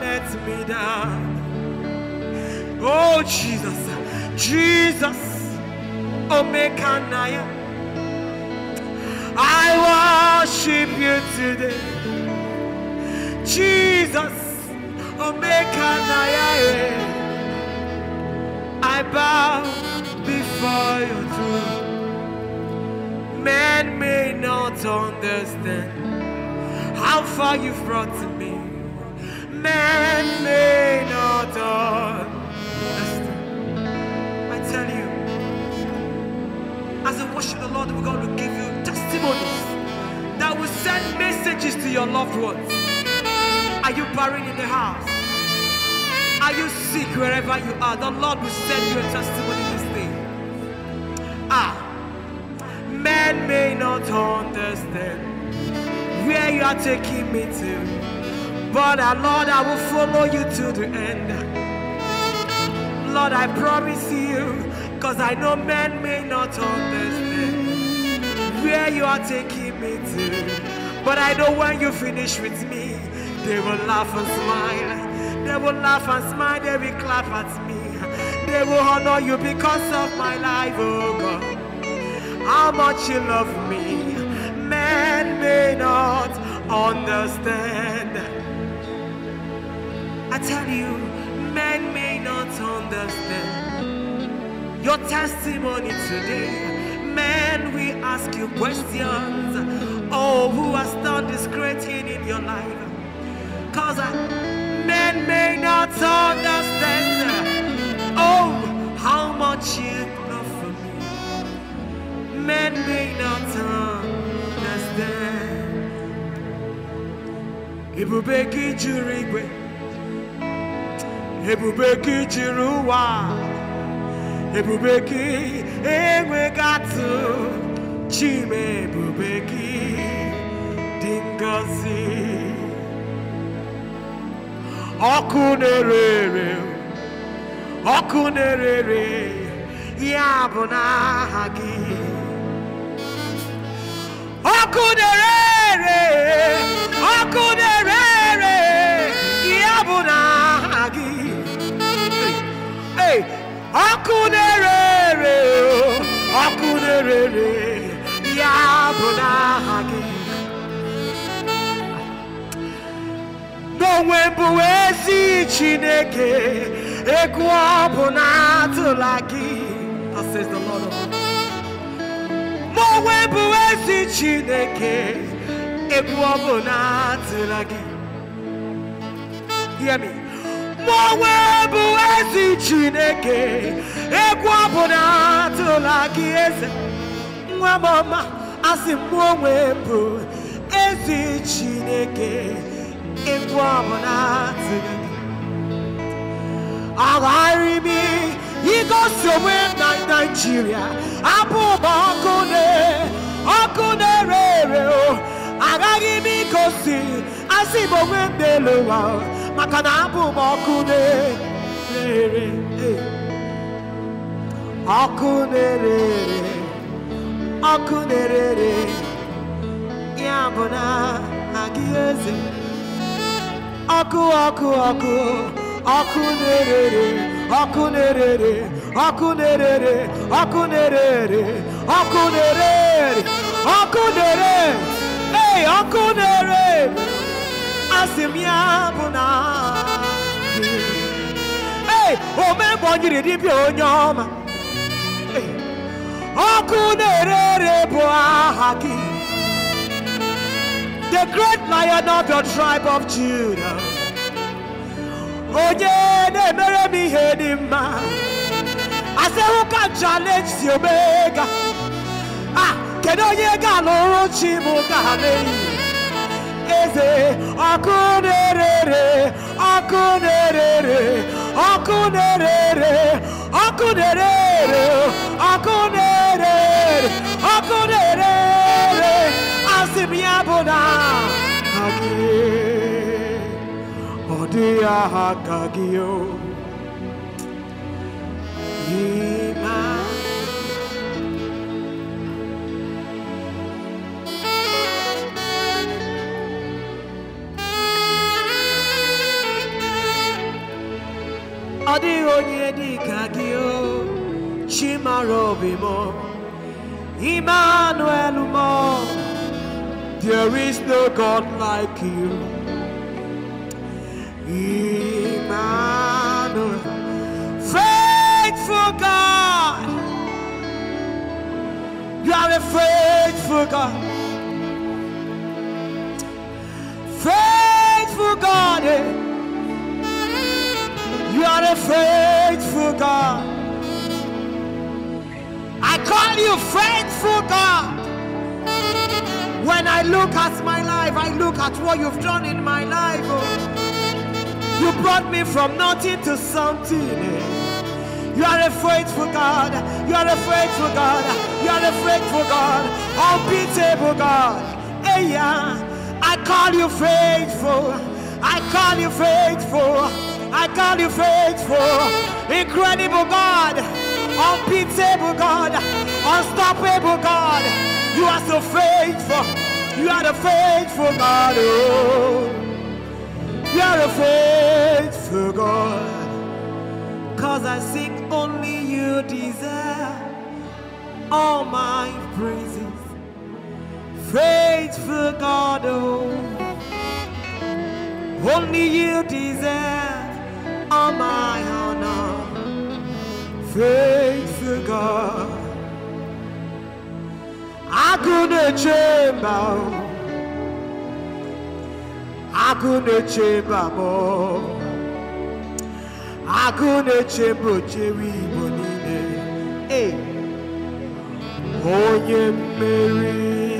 let me down. Oh, Jesus. Jesus. Omekanaya. I worship you today. Jesus. Omekanaya. Eh. I bow before your throne. Man may not understand how far you've brought to me. Man may not understand I tell you, as I worship the Lord, we're going give you testimonies that will send messages to your loved ones. Are you buried in the house? Are you sick wherever you are? The Lord will send you a testimony this day. Ah, men may not understand where you are taking me to, but our ah, Lord, I will follow you to the end. Lord, I promise you, because I know men may not understand where you are taking me to. But I know when you finish with me, they will laugh and smile. They will laugh and smile, they will clap at me. They will honor you because of my life, oh God. How much you love me, men may not understand. I tell you, men may not understand your testimony today. Men, we ask you questions. Oh, who has done this great thing in your life? Cause uh, men may not understand. Oh, how much you love for me. Men may not understand. juri Jurigwe ebubeki gị jiri ụwa ebube chime ebube gị ọkụ na-ere oku na-ere n'aha gị ọkụ oku hey, akunere, na-ere ere ọkụ na-ere ere ya bụ n'aha gị n'onwe bụ I Chineke egwu ọ Chineke egwu ọ hear me mụonwe bụ ezi chineke egwu ọbụla tụla gị eze nwa m ọma asị m onwe bụ ezi chineke egwu ọbụla tụla gị agharị m igosi onwe na naijiria abụ ụba ọkụ ọkụ na-ere ere agaghị m igosi asị m onwe m n'elu ụwa Makana na abụ m ọkụ na-ere ọkụ na-ere ọkụ na-ere ya bụ na aku oku na ere oku na ere ya bu na aku eze aku oku ọkụ ọkụ ọkụ na-ere ọkụ na-ere ọkụ na-ere ọkụ na-ere ọkụ na-ere ọkụ na-ere ọkụ Hey, o me di bi oku nerere bo The great lion of your tribe of Judah Onye na-emere m ihe dị mma asị hụ ka challenge si omega ah kedu onye ga-alụrụ chi m Ekeze, Akunerere, Akunerere, Akunerere, Akunerere, Akunerere, Akunerere, Asimiabona, Agi, Odia Hakagio, Ima. onye dị o Emmanuel there is no God like you Emmanuel faithful God you are a faithful God faithful God eh? You are a faithful God. I call you faithful God. When I look at my life, I look at what you've done in my life. Oh. You brought me from nothing to something. Eh. You are a faithful God. You are a faithful God. You are a faithful God. Unbeatable God. Hey, yeah. I call you faithful. I call you faithful. I call you faithful, incredible God, unbeatable God, unstoppable God. You are so faithful. You are the faithful God. Oh. You are a faithful God. Cause I seek only you deserve all my praises. Faithful God, oh. only you deserve all my honor, faithful God. I couldn't chamber, I couldn't chamber more. I couldn't change but Jerry Bonine. Hey, oh, yeah, Mary.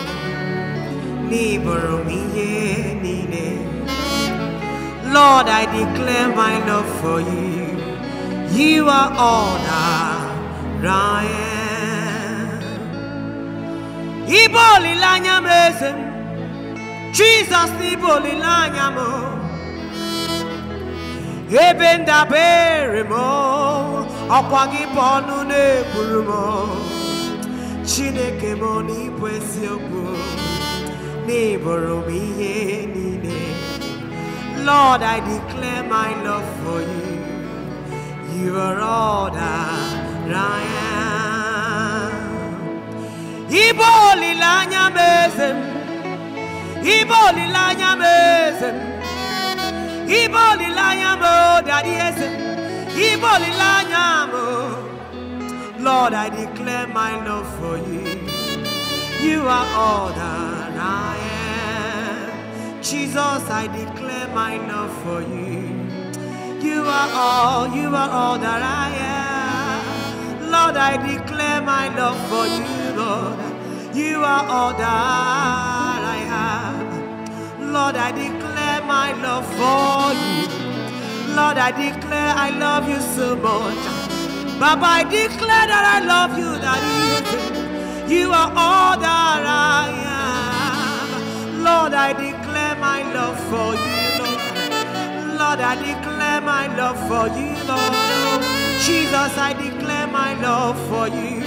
Lord, I declare my love for you. You are all that I am. Iboli lanya mesem, Jesus iboli lanya mo. Ebe ndabere mo, ọkwa gị bụ ọnụ na-ekwuru mo. Chineke m ọ na-ibu eziokwu neighbor oh, Lord, I declare my love for you. You are all that I am. Ibo lilanya mezem. Ibo lilanya mezem. Ibo lilanya mo daddy Ibo lilanya mo. Lord, I declare my love for you. You are all that I am. Jesus, I declare my love for you. You are all, you are all that I am. Lord, I declare my love for you, Lord. You are all that I have, Lord, I declare my love for you. Lord, I declare I love you so much. Baba, I declare that I love you, that you do. You are all that I am. Lord, I declare my love for you, Lord. Lord, I declare my love for you, Lord. Jesus, I declare my love for you.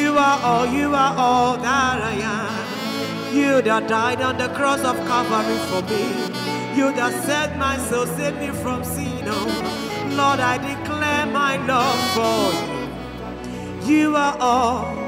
You are all, you are all that I am. You that died on the cross of Calvary for me. You that set my soul, save me from sin. Oh, Lord, I declare my love for you. You are all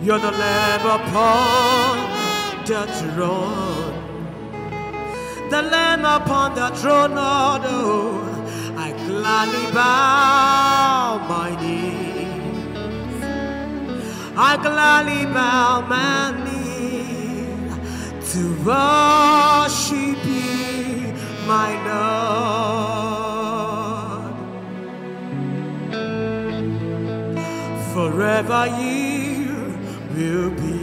You're the Lamb upon the throne. The Lamb upon the throne, Lord, oh, I gladly bow my knee. I gladly bow my knee to worship you, my Lord. Forever you will be.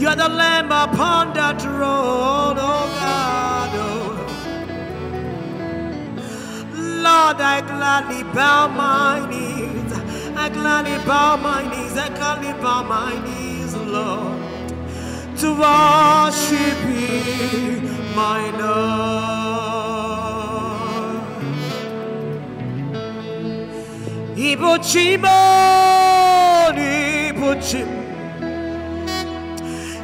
You are the lamb upon that road, oh God. Lord, I gladly bow my knees. I gladly bow my knees. I gladly bow my knees, Lord, to worship you, my Lord. 이 보지만 이 보지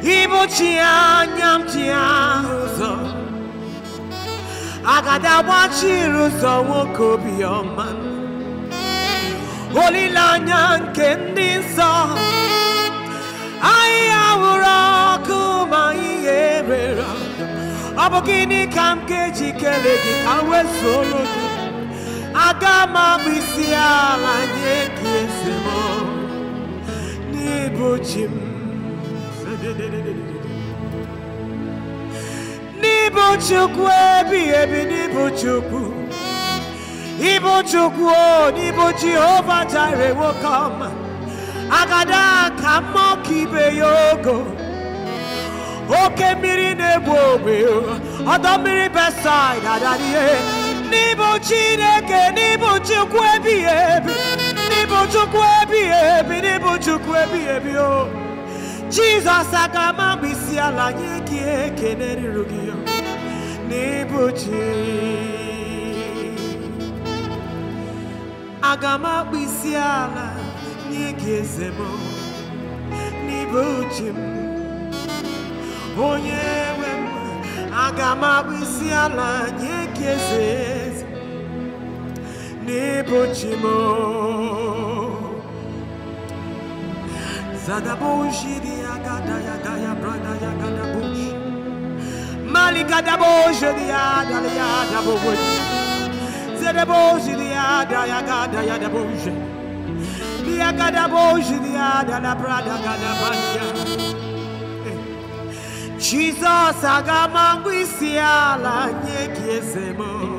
이 보지 않냠지않으서 아가다와지로서 워코비어만 올리라냥 겐딘서 아이아우라 그마이 예배라 아버기니 감게 지켜내기 강외 소로도 Agama m abụ isi ala nye gị eze m n'ịbụ ebi n'ịbụ chukwu ịbụ chukwu o n'ịbụ jehova jire nwoke ọma agada ka mmụọ ka ibe ya ogo oke mmiri na-egbu ogbe ọdọ mmiri n'ịbụ chineke n'ịbụ chukwu ebighị ebi n'ịbụ chukwu ebighị ebi n'ịbụ chukwu agama ebi o jizọs aga m agba isi onye Nebochimo Zadaboshi ya Yagaya Brada ya Mali gada Yagada Bush Malikadaboshi Diada Yada gada ya gada Yagada Di Bush Diagada Boshi Diada La Brada Gada Banya eh. Jesus Agamangwisia La Nyekiesemo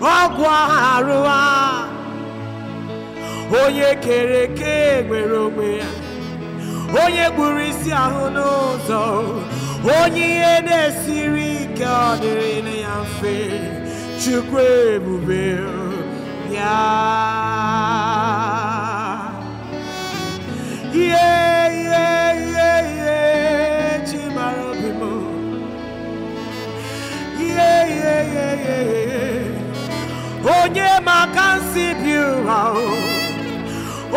ọgwụ arụ a onye kere eke nwere onwe ya onye gburu isi ahụ n'ụzọ onye ihe na-esiri ike ọ dịrị ya mfe chukwu ebube ya ihe ihe ihe ihe chi mara obi m ihe ihe ihe ihe ihe onye maka nsi bi ụra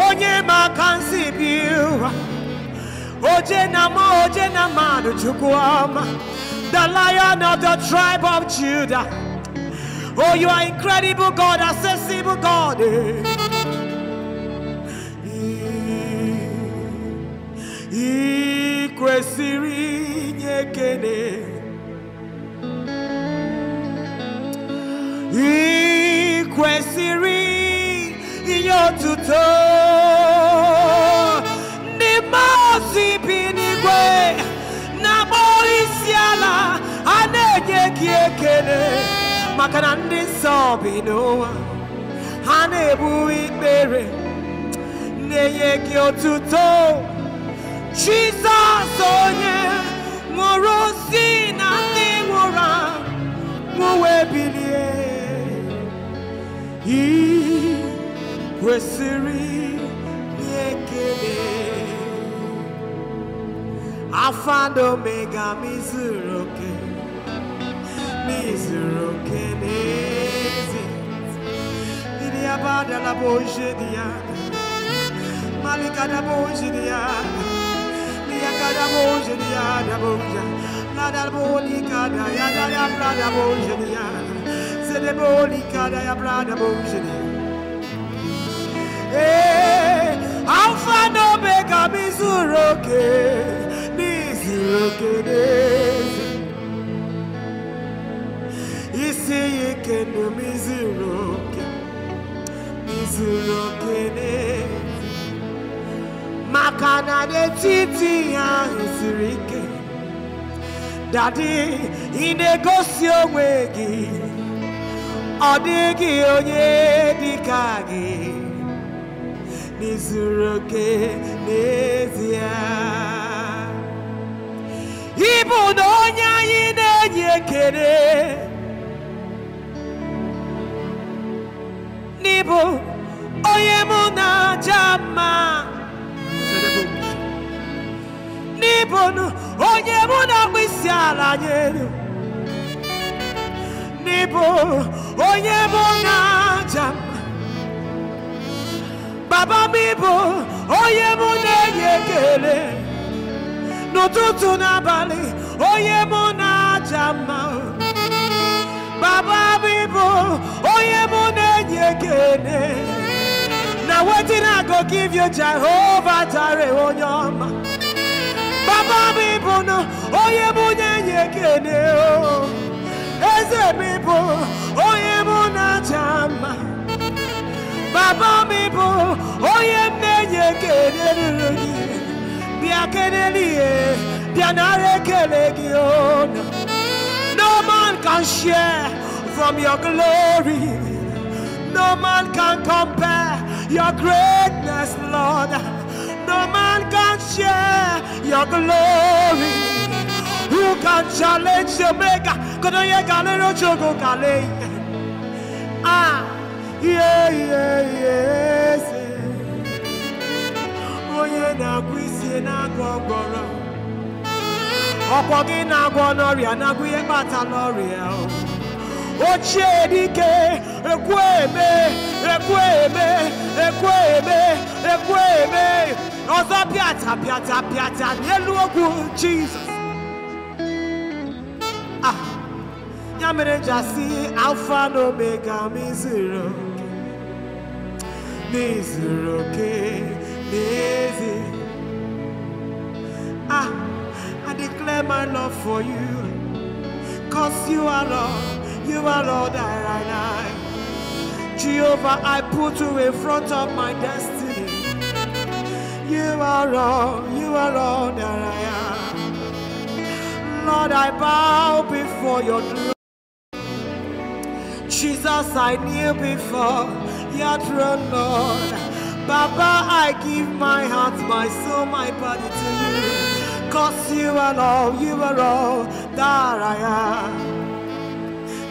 onye maka nsi bi oje na oje na chukwu the lion of the tribe of judah oh you are incredible god accessible god kwesịrị inye otuto ndị mmụọ ozi bi n'igwe na-akpọrọ isi ala a na-enye gị ekele maka na ndị nsọ bi n'ụwa ha na-ebu ikpere na-enye gị otuto Jizọs onye nwụrụ si na ndị nwụrụ anwụ wee bilie i kwesịrị Omega mizuru oke mizuru oke n'ezi ndị abadala bụ oje dị ya malikada bụ oje dị ya liyakada bụ oje dị ya adabụ Alpha and Omega Mizuroke Mizuroke Nezi Isiyike no Mizuroke Mizuroke Nezi Makana de titi ya Isirike Daddy, in a gosio wegi ọ dịghị onye dị ka gị n'izuru oke n'ezie ịbụ na onye anyị na-enye ekele n'ịbụ onye mụ na-aja mma n'ịbụ onye mụ na-akpụ isi ala nyelu n'ịbụ onye mụ na baba m ịbụ onye mụ na-enye n'ụtụtụ n'abalị onye mụ na-aja mma baba onye mụ na-enye ekele na go give you onye ọma baba mụ na-enye ekele o oh. As a people, onye mụ na-aja baba mi bụ onye m na-enye ekele ruru gị bịa a ihe bịa nara no man can share from your glory no man can compare your greatness lord no man can share your glory who can challenge the maker. Kodoye galero chogo kale. Eh? Ah, yeah, yeah, yes. Oye oh, na kwisi na gogoro. Ọ̀pọ̀ gị na-agwọ n'ọrịa na-agwụ ihe kpata n'ọrịa ochie dike ekwe eme ekwe eme ekwe eme ekwe eme ọzọ pịata pịata pịata n'elu ogwu Jizọs ya mere jasi alfa omega m izuru n'izuru ah i declare my love for you cause you are Lord, you are lord that i like jehovah i put you in front of my destiny you are lord you are lord that i am Lord, I bow before your throne. Jesus, I knew before your throne, Lord. Baba, I give my heart, my soul, my body to you. Cause you are all, you are all that I am.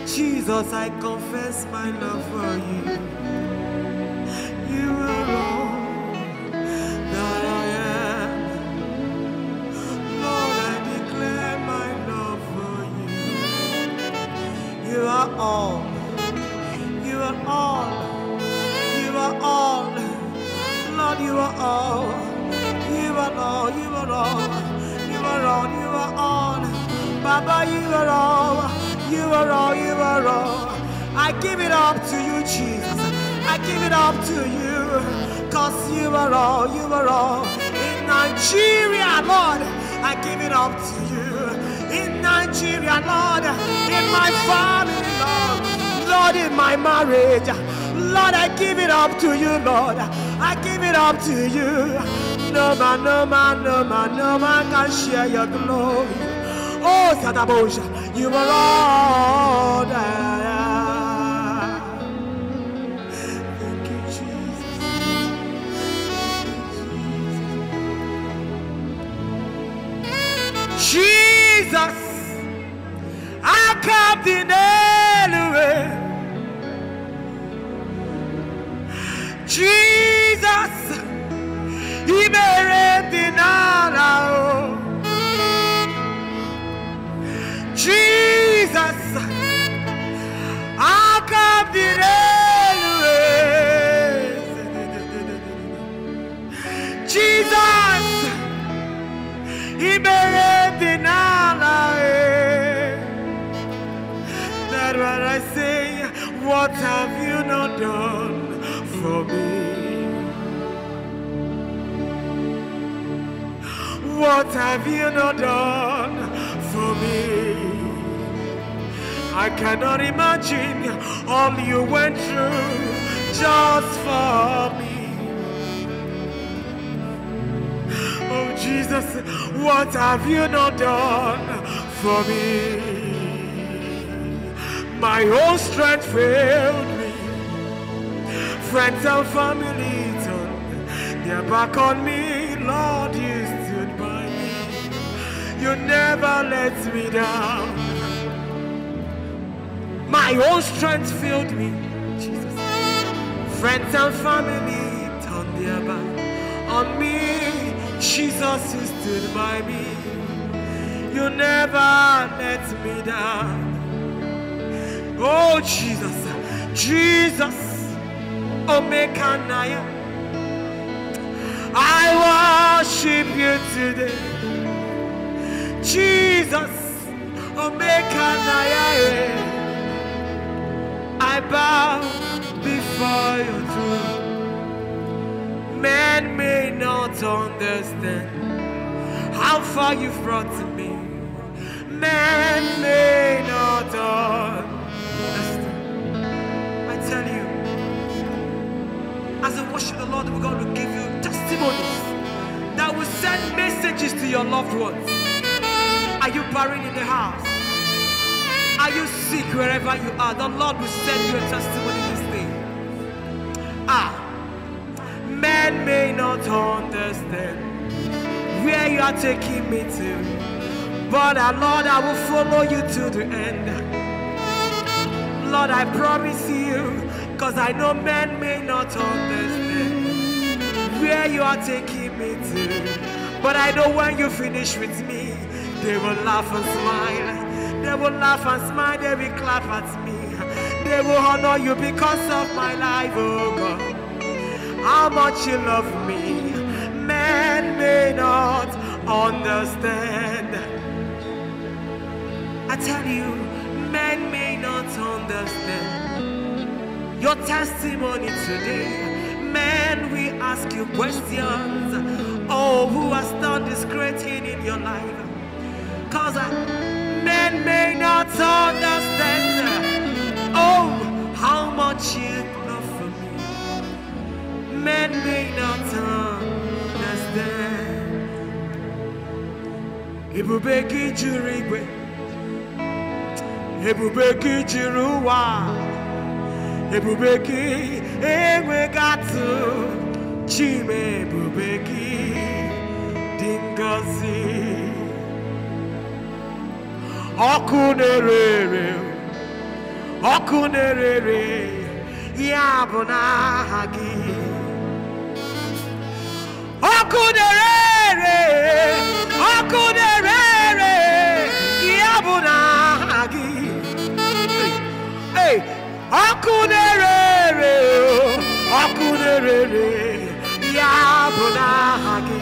Jesus, I confess my love for you. You are all that I am. Lord, I declare my love for you. You are all are all. You are all. Lord, you are all. You are all. You are all. You are all. You are all. Baba, you are all. You are all. You are all. I give it up to you, Jesus. I give it up to you. Cause you are all. You are all. In Nigeria, Lord, I give it up to you. In Nigeria, Lord, in my father. Lord, in my marriage. Lord, I give it up to you, Lord. I give it up to you. No man, no man, no man, no man can share your glory. Oh, Sadabosha, you are Lord. Thank you, Jesus. Jesus, I come in anyway. Jesus oh. Jesus akabire Jesus ìbẹ̀rẹ̀ eh. That's what I say. What have you not done? for me? What have you not done for me? I cannot imagine all you went through just for me. Oh Jesus, what have you not done for me? My whole strength failed friends and family they their back on me. Lord, you stood by me. You never let me down. My own strength filled me, Jesus. Friends and family turned their back on me. Jesus, you stood by me. You never let me down. Oh, Jesus, Jesus. Omekanaya. I worship you today. Jesus, Omekanaya. Eh. I bow before your throne. Man may not understand how far you've brought to me. Man may not understand As a worship the Lord, we're going to give you testimonies that will send messages to your loved ones. Are you buried in the house? Are you sick wherever you are? The Lord will send you a testimony this day. Ah, men may not understand where you are taking me to, but uh, Lord, I will follow you to the end. Lord, I promise you Cause I know men may not understand where you are taking me to. But I know when you finish with me, they will laugh and smile. They will laugh and smile, they will clap at me. They will honor you because of my life, oh God. How much you love me, men may not understand. I tell you, men may not understand your testimony today. Man, we ask you questions. Oh, who has done this great thing in your life? Because uh, men may not understand. Oh, how much you love for me. Men may not understand. Ebube gị jiri igwe, ebube gị jiri ụwa ebube gị enweghị atụ chime ebube gị dị ngọzi ọkụ na-ere ere ọkụ na-ere ere ya bụ n'aha gị ọkụ na-ere ere oku na-ere ya bụ na ọkụ na-ere ere ọkụ na-ere ere ya bụ n'aha gị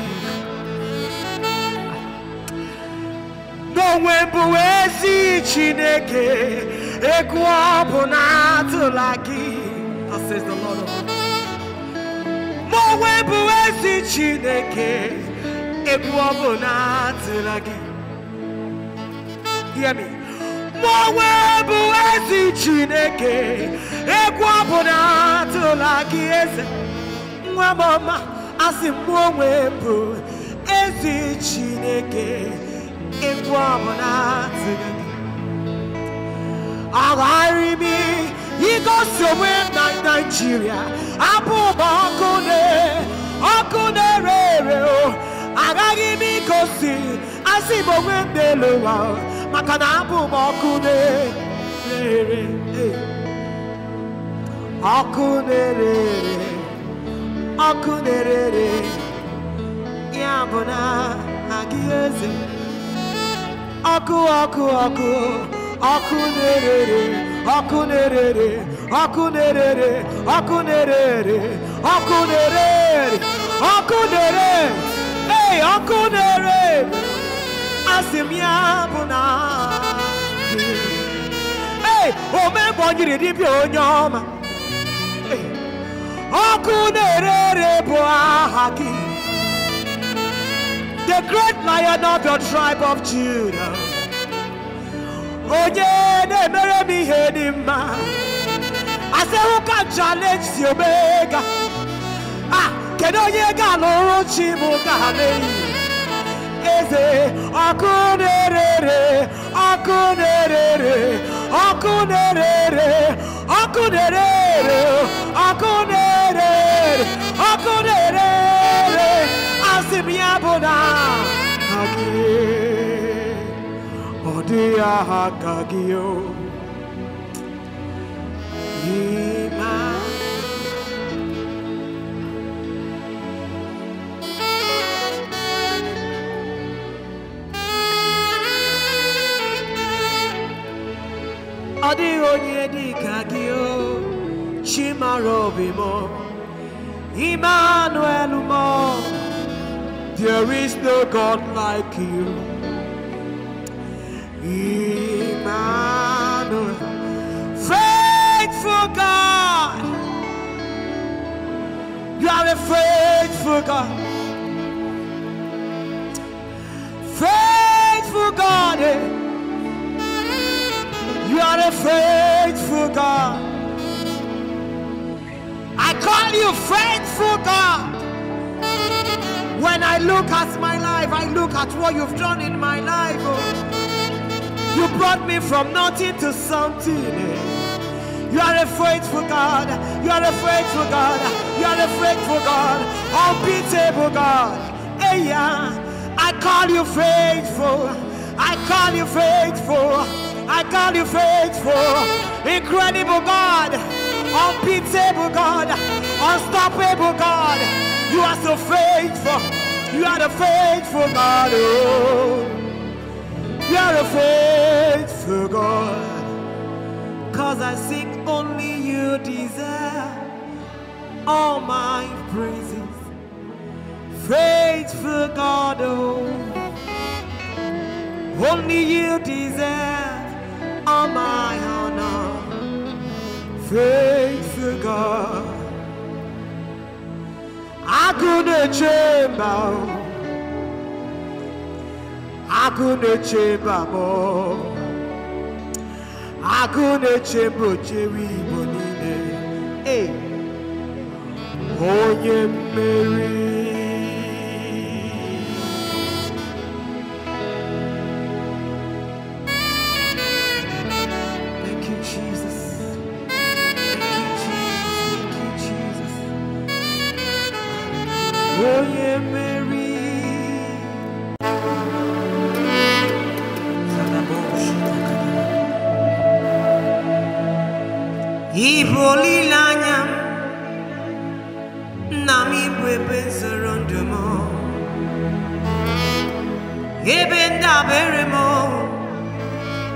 n'onwe bụ ezi Chineke egwu ọ bụ na atụla gị onwe bụ ezi Chineke egwu ọ bụ na atụla gị hear me Ọgbọ nwe Chineke egwu ọbụla atụla gị eze nwa m ọma asị bụ ezi Chineke egwu ọbụla atụla gị agharị m igosi onwe na Naịjirịa abụ ụba ọkụ ọkụ na-ere ere agaghị m igosi asị maka na abụ m ọkụ na-ere ọkụ na-ere ọkụ na-ere ya bụ na agị eze ọkụ ọkụ ọkụ ọkụ na-ere ọkụ na-ere ọkụ na-ere ọkụ na-ere ọkụ na-ere ọkụ na-ere ọkụ na-ere omebonyiri dibịa onye ọma ọkụ na-ere ere bụ aha gị the great lion of your tribe of Judah onye na-emere m ihe dị mma asịhụ ka challenge si omega a ah, kedu onye ga-alụrụ chi m ga eze ọkụ na-erere ọkụ na-erere ọkụ na-erere ọkụ ya bụ na ọdịghị onye dị ka gị o chimara obi m Emmanuel m there is no God like you Emmanuel faithful God you are a faithful God faithful God eh? You're a faithful God. I call you faithful God. When I look at my life, I look at what you've done in my life. Oh. You brought me from nothing to something. Eh. You are a faithful God. You are a faithful God. You are a faithful God. Unbeatable God. Hey, yeah. I call you faithful. I call you faithful. I call you faithful, incredible God, unbeatable God, unstoppable God. You are so faithful. You are the faithful God. Oh, you are the faithful God. Cause I seek only you deserve all my praises. Faithful God, oh, only you deserve all my honor, faithful God. I couldn't chamber, I couldn't chamber more. I couldn't chamber, Jerry Bonine. Hey, oh, yeah, Mary.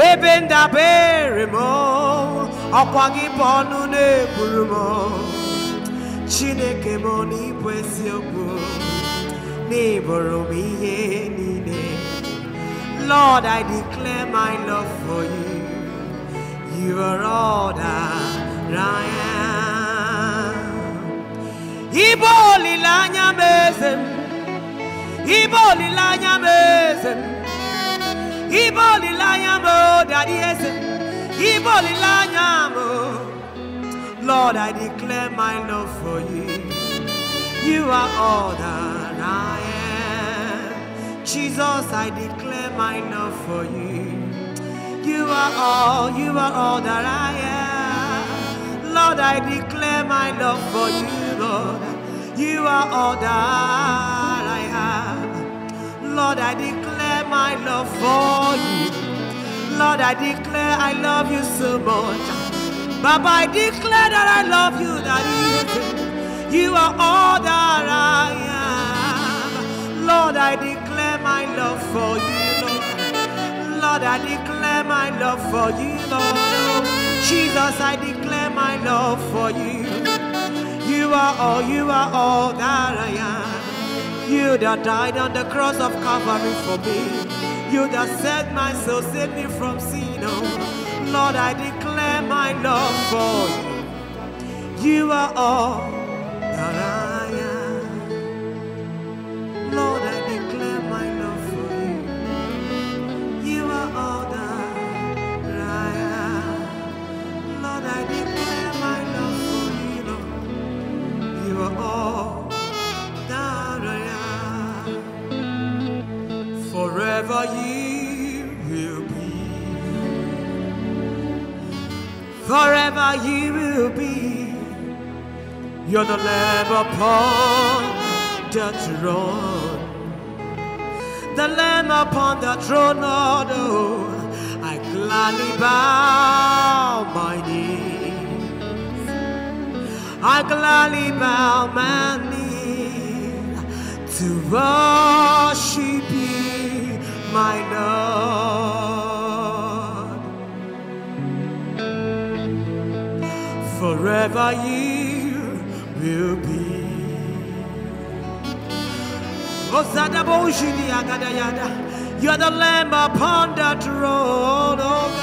ebe ndabere m ọkwa gị chineke m n'ịbụ eziokwu n'ịbụrụ m ihe Lord, I declare my love for you. You are all that I am. Ibo olilanya mezem. Ibo olilanya mezem. Ibolilanya mo, Daddy Ese. Lord, I declare my love for you. You are all that I am. Jesus, I declare my love for you. You are all, you are all that I am. Lord, I declare my love for you, Lord. You are all that I have. Lord, I declare my love for you. Lord, I declare I love you so much. Baba, I declare that I love you, that you, you are all that I am. Lord, I declare my love for you, Lord. Lord, I declare my love for you, Lord. Jesus, I declare my love for you. You are all, you are all that I am. You that died on the cross of Calvary for me. You that set my soul, save me from sin. Oh, Lord, I declare my love for you. You are all that I am. Lord, Forever you will be. Forever ye will be. You're the Lamb upon the throne. The Lamb upon the throne, Lord, oh, I gladly bow my knee. I gladly bow my knee to worship you my God. Forever you will be. You are the lamb upon that throne, oh God.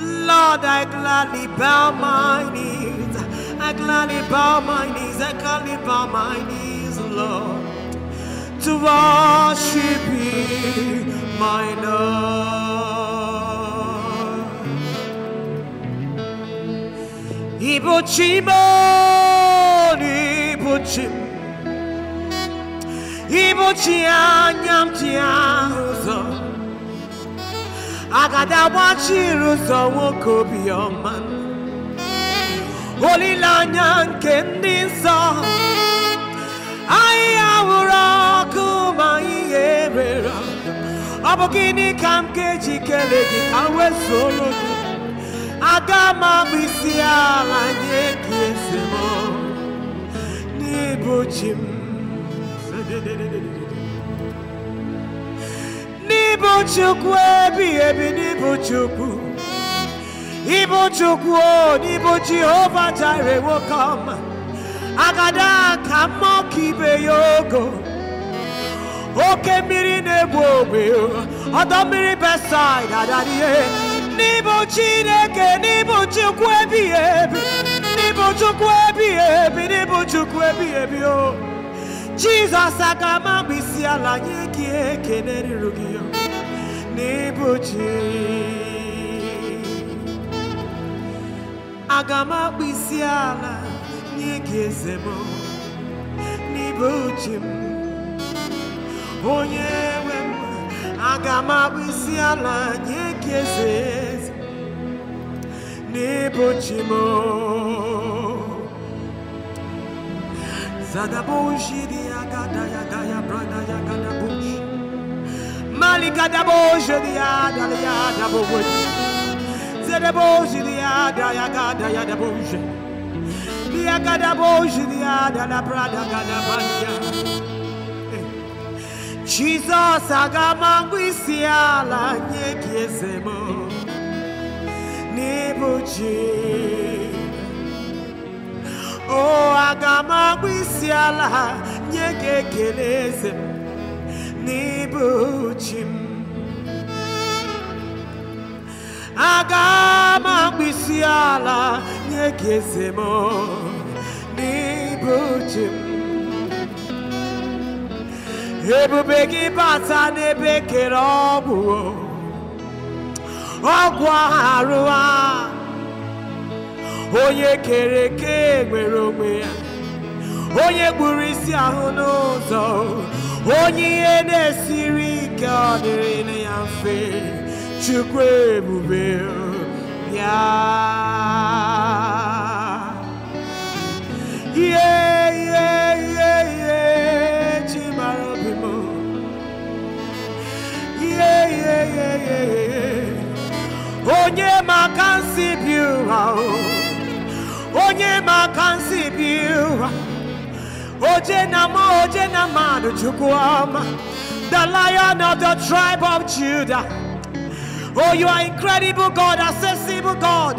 Lord, I gladly bow my knees. I gladly bow my knees. I gladly bow my knees, Lord to worship Thee, my Lord. 이보지만 이보지 이보지 않냠지 않으소 아가다와치루소 오코비어만 올리라냥 겐디소 아이아우라 ga-emere ọ bụ gịnị ka m ga-eji gị ka m gị aga m isi ala nye gị eze m n'ịbụ chi m n'ịbụ chukwu ebighị ebi n'ịbụ chukwu ịbụ chukwu o n'ịbụ jehova jire ọma agada ka mmụọ ka ibe ya ogo oke mmiri na-egbu ogbe ọdọ mmiri besaid adadie n'ịbụ chineke n'ịbụ chukwu ebighị ebi n'ịbụ chukwu ebighị ebi n'ịbụ chukwu ebighị ebi o jizọs aka ma mgbe isi ala nye gị ekele ruru gị n'ịbụ chi aga m akpụ isi ala nye gị eze m n'ịbụ chi m onye nwe m aga m abụ isi ala nye gị eze n'ịbụ chi m zadaboshiri agada ya daya brada ya gadabosh malikadaboshiri adala ya adabowoji zadaboshiri ada ya gada ya dabosh Dia cada bojo de ada na prada cada banha Jizọs agama ngwa isi ala nye gị Nibuji Oh n'ịbụ ji o agama ngwa isi ala nye gị ekele agama nye ebube gị bata n'ebe kere ọgwụ ọgwụ arụ a onye kere eke nwere onwe ya onye gburu isi ahụ n'ụzọ onye ihe na-esiri ike ọ dịrị ya mfe chukwu ebube ya ihe Onye Onye Oje oje The lion of the tribe of Judah Oh you are incredible God accessible God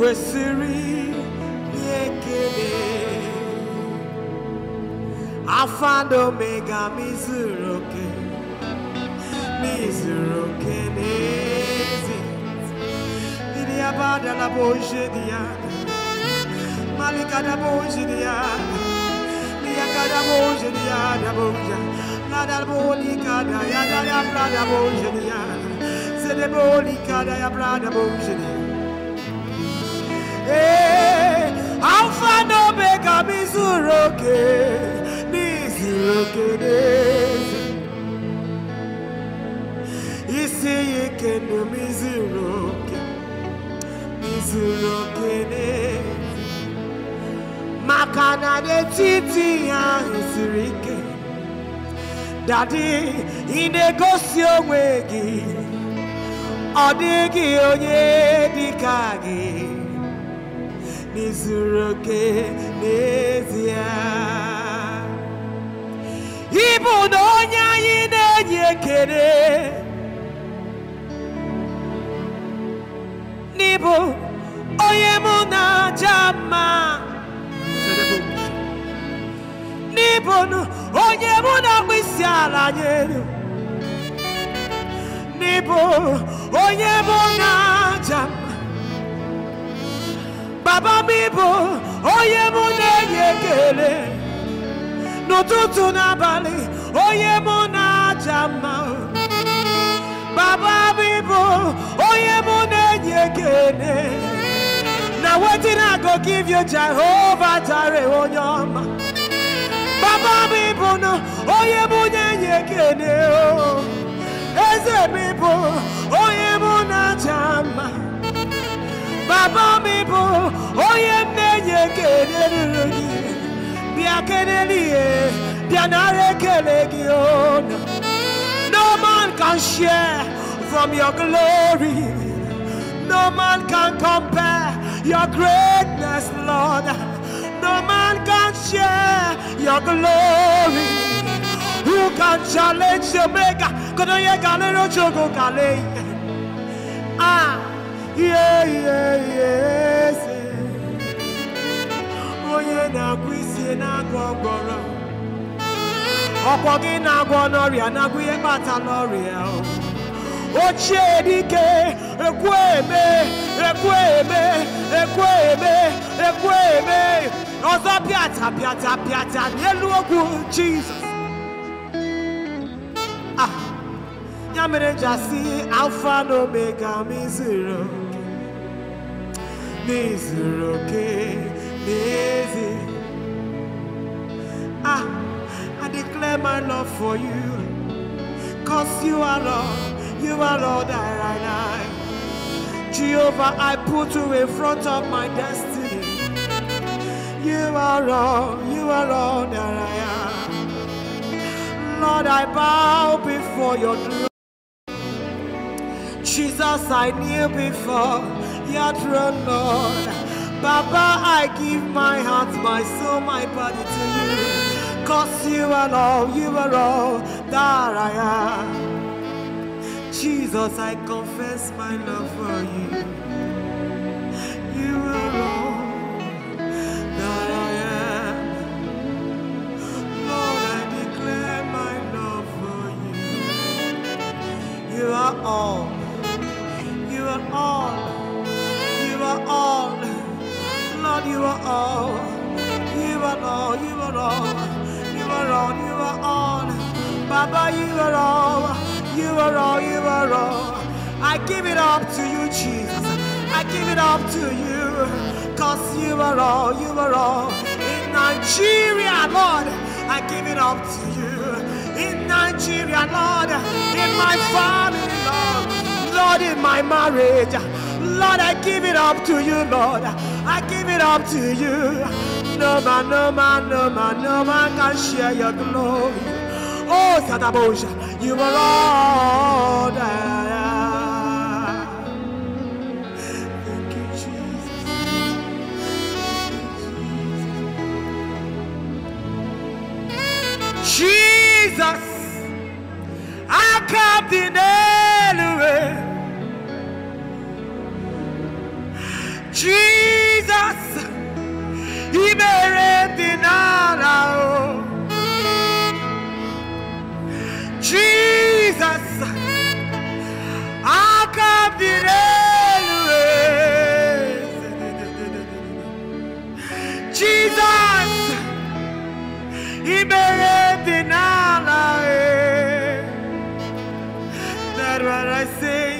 kwesịrị ihe ekele afa na omega m izuru oke n'ezi ndị abada la boje dị malika na boje dị ya Yaka da boje di ya da boja La bolika da ya da ya bra boje di Se de bolika da ya bra da boje di oke alfa na omega m izuru oke n'izuru oke n'ezi isi ya ike na m izuru oke n'izuru oke n'ezi maka na n'etiti ahụ siri ike dadi ị na-egosi onwe gị ọ dịghị onye dị ka gị Nizuroke oke n'ezie ịbụ na onye anyị na-enye ekele n'ịbụ onye mụ na-aja n'ịbụ onye mụ na-akpụ n'ịbụ onye mụ Baba m oye onye mu n'ụtụtụ na bali, oye papa jama. Baba onye oye na na-enye na wetin I go give you Jehovah Jireh onye ọma Baba m ịbụ na onye mu eze Baba bia kelegion. No man can share from your glory. No man can compare your greatness, Lord. No man can share your glory. Who can challenge your maker? Ah. ihe ihe eze onye na-agwọ isi na-agwọ ọgwọrọ ọkwọ gị na-agwọ n'ọrịa na ihe kpata n'ọrịa ochie dike ekwe eme ekwe eme ekwe eme ekwe eme ọzọ pịata pịata pịata n'elu ogwu jizọs ah, ya mere nja alfa na omega m n'ezuru ah i declare my love for you cause you are lord you are lord i am jehovah i put you in front of my destiny you are lord you are lord that i am lord i bow before your throne jesus i kneel before your Lord. Baba, I give my heart, my soul, my body to you. Cause you are all, you are all that I am. Jesus, I confess my love for you. You are all that I am. Lord, I declare my love for you. You are all. You are all are all. Lord, you are all. You are all. You are all. You are all. You are all. Baba, you are all. You are all. You are all. I give it up to you, Jesus. I give it up to you. Cause you are all. You are all. In Nigeria, Lord, I give it up to you. In Nigeria, Lord, in my family, Lord, Lord, in my marriage. Lord, I give it up to you, Lord. I give it up to you. No man, no man, no man, no man can share your glory. Oh, Sadabosha, you are Lord. Thank you, Jesus. Jesus, I come in anyway. Jesus ìbẹ̀rẹ̀ dènà ara o Jesus akabire lue Jesus he dènà ara e that what I say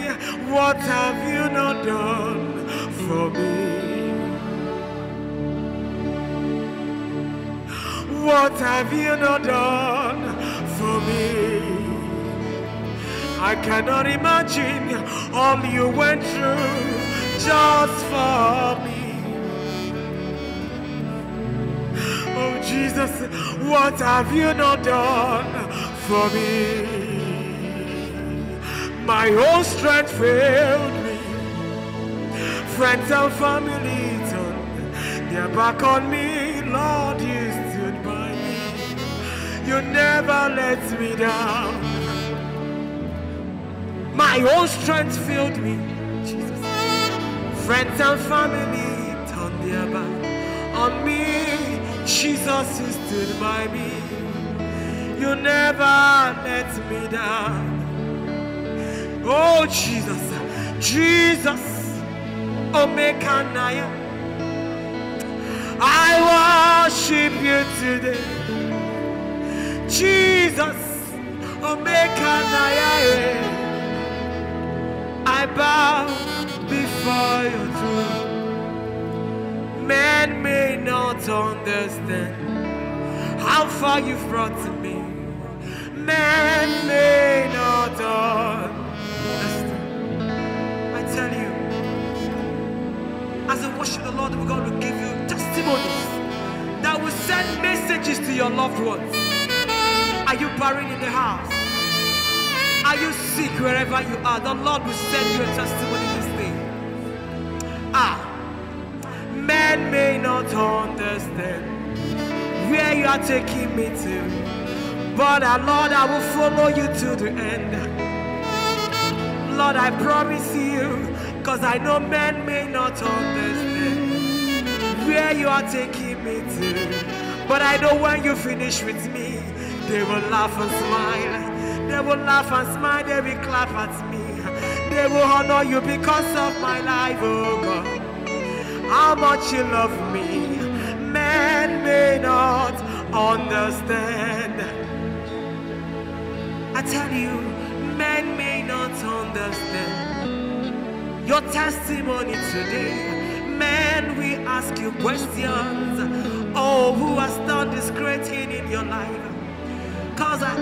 what have you not done for me? What have you not done for me? I cannot imagine all you went through just for me. Oh Jesus, what have you not done for me? My whole strength failed me friends and family turned their back on me. Lord, you stood by me. You never let me down. My own strength filled me, Jesus. Friends and family turned their back on me. Jesus, you stood by me. You never let me down. Oh, Jesus, Jesus. Omekanaya. I worship you today. Jesus, Omekanaya. I bow before your throne. Man may not understand how far you've brought to me. Man may not understand. I tell you. As we worship the Lord, we're going to give you testimonies that will send messages to your loved ones. Are you buried in the house? Are you sick wherever you are? The Lord will send you a testimony this day. Ah, men may not understand where you are taking me to, but uh, Lord, I will follow you to the end. Lord, I promise you Cause I know men may not understand where you are taking me to. But I know when you finish with me, they will laugh and smile. They will laugh and smile, they will clap at me. They will honor you because of my life, oh God. How much you love me, men may not understand. I tell you, men may not understand your testimony today. Man, we ask you questions. Oh, who has done this great thing in your life? Because uh,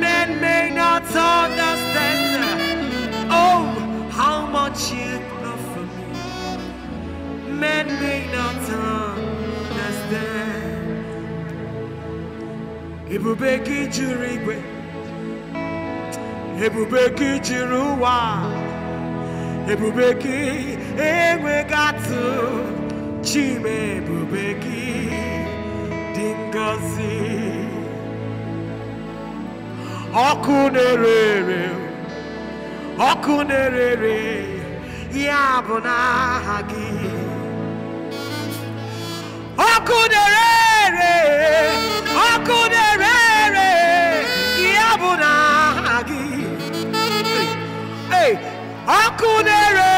men may not understand. Oh, how much you love for me. Men may not understand. to regret. jiri will be gị to rewind. ebube gị enweghị atụ chime ebube gị dị ngọzi ọkụ na-ere ere ọkụ na-ere ya bụ n'aha gị ọkụ na-ere ere ọkụ ọkụ na-ere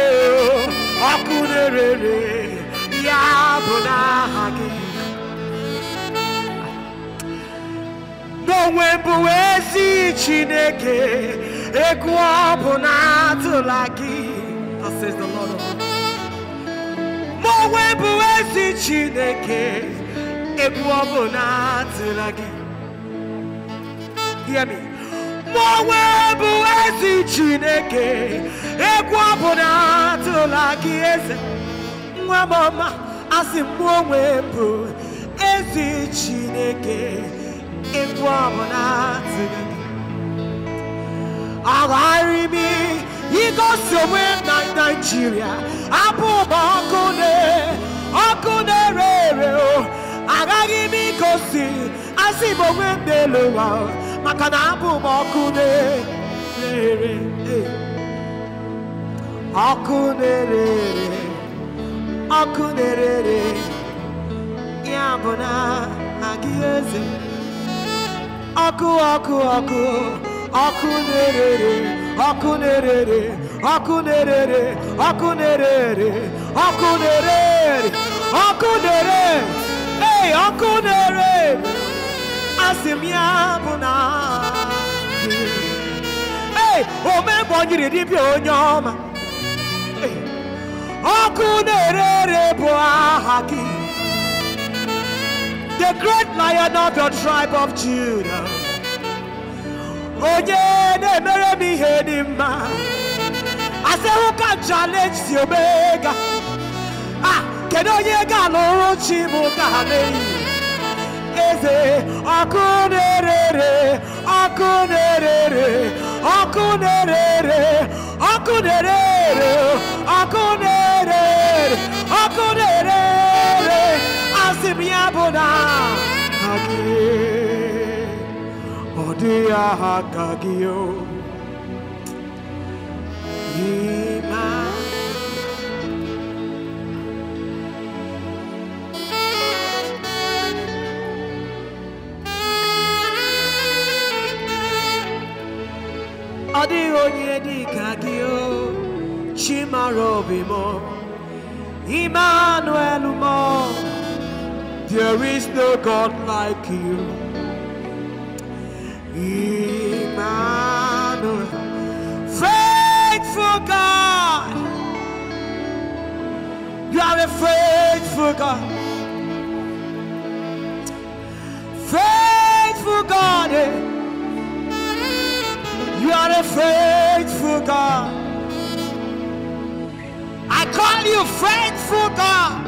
ere ọkụ na-ere ere ya bụ n'aha gị n'onwe bụ ezi Chineke egwu ọ bụ na atụla gị onwe bụ ezi Chineke egwu ọ bụ na atụla gị hear me ọkpụkpọ nwa bụ ezi chineke egwu ọbụ na atụla gị eze nwa m ọma asị m onwe bụ ezi chineke egwu ọbụ na atụla gị agharị m igosi onwe na naijiria abụ ụba ọkụ ọkụ na-ere ere agaghị m igosi asị m onwe m n'elu ụwa maka na abụ m ọkụ na-ere ọkụ na-ere ọkụ na-ere ya bụ na agị eze ọkụ ọkụ ọkụ ọkụ na-ere ọkụ na-ere ọkụ na-ere ọkụ na-ere ọkụ na-ere ọkụ na-ere ọkụ na-ere asịmya ee omebọ nyiri dibịa onye ọma ọkụ na-ere ere bụ aha gị the great lion of your tribe of Judah onye na-emere m ihe dị mma asịhụka challenge si omega a ah, kedu onye ga-alụrụ chi bụ ka ha na-eyi eze ọkụ na-erere ọkụ na-erere ọkụ na-erere ọkụ asị m ya bụ na gị ọ onye dị Emmanuel there is no God like you Emmanuel faithful God you are a faithful God faithful God eh? You are a faithful God. I call you faithful God.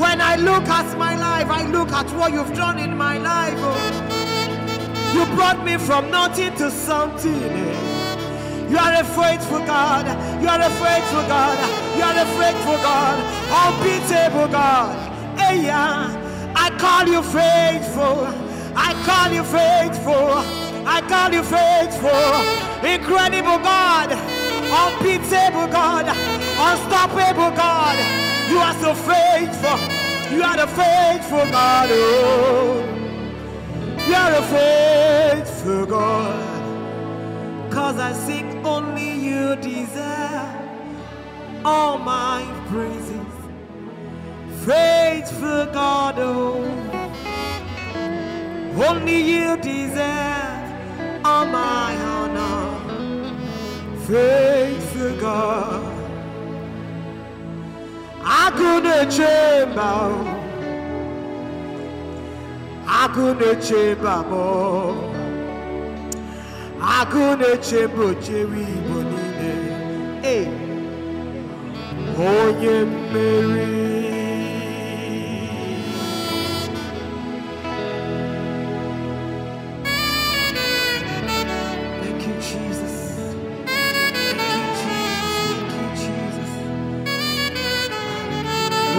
When I look at my life, I look at what you've done in my life. Oh. You brought me from nothing to something. Eh. You are a faithful God. You are a faithful God. You are a faithful God. Unbeatable God. Hey, yeah. I call you faithful. I call you faithful. I call you faithful, incredible God, unbeatable God, unstoppable God. You are so faithful. You are the faithful God. Oh, you are a faithful God. Cause I sing only you deserve all my praises. Faithful God, oh, only you deserve on my honor, faith faithful God. I couldn't chamber, I couldn't chamber more. I couldn't change chamber, Jerry Bonine. Hey, oh, yeah, Mary.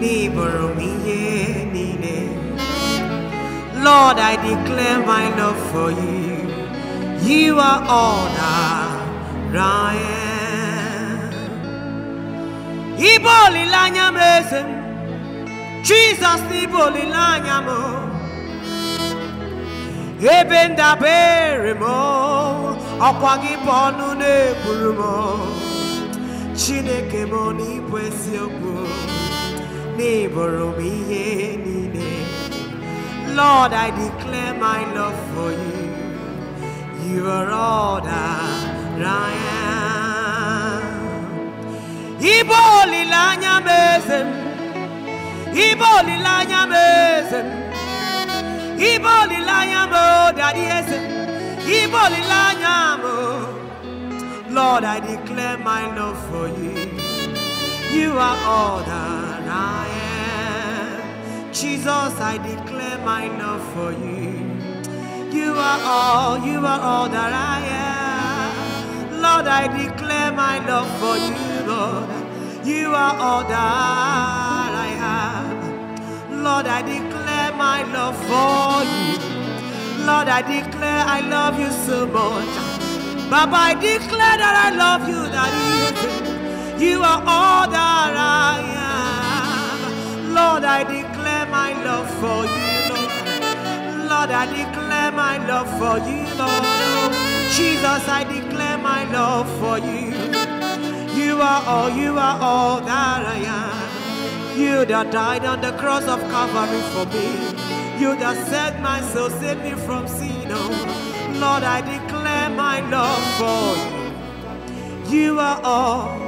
neighbor me Lord, I declare my love for you. You are all that I am. Iboli lanya mezem, Jesus iboli lanya mo. Ebenda ndabere mo, ọkwa gị bụ ọnụ Chineke m n'ibụ eziokwu neighbor will be any day. Lord, I declare my love for you. You are all that I am. Ibo olilanya mezem. Ibo olilanya mezem. Ibo olilanya mo daddy esem. Ibo olilanya mo. Lord, I declare my love for you. You are all that I am. Jesus, I declare my love for you. You are all, you are all that I am. Lord, I declare my love for you, Lord. You are all that I have. Lord, I declare my love for you. Lord, I declare I love you so much. Baba, I declare that I love you, that you. You are all that I am. Lord, I declare my love for you, Lord. I declare my love for you, Lord. Jesus, I declare my love for you. You are all, you are all that I am. You that died on the cross of Calvary for me. You that set my soul, saved me from sin. Oh, Lord, I declare my love for you. You are all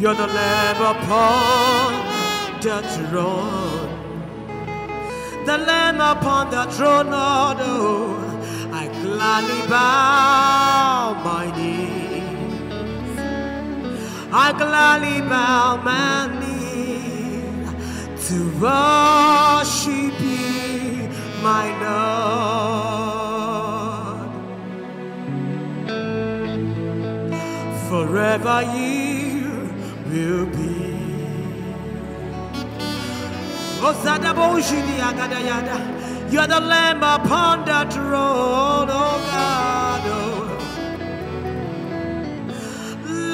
You're the lamb upon the throne. The lamb upon the throne, oh, I gladly bow my knees. I gladly bow my knees to worship you, my Lord. Forever you will be. You are the lamb upon the throne, oh God. Oh.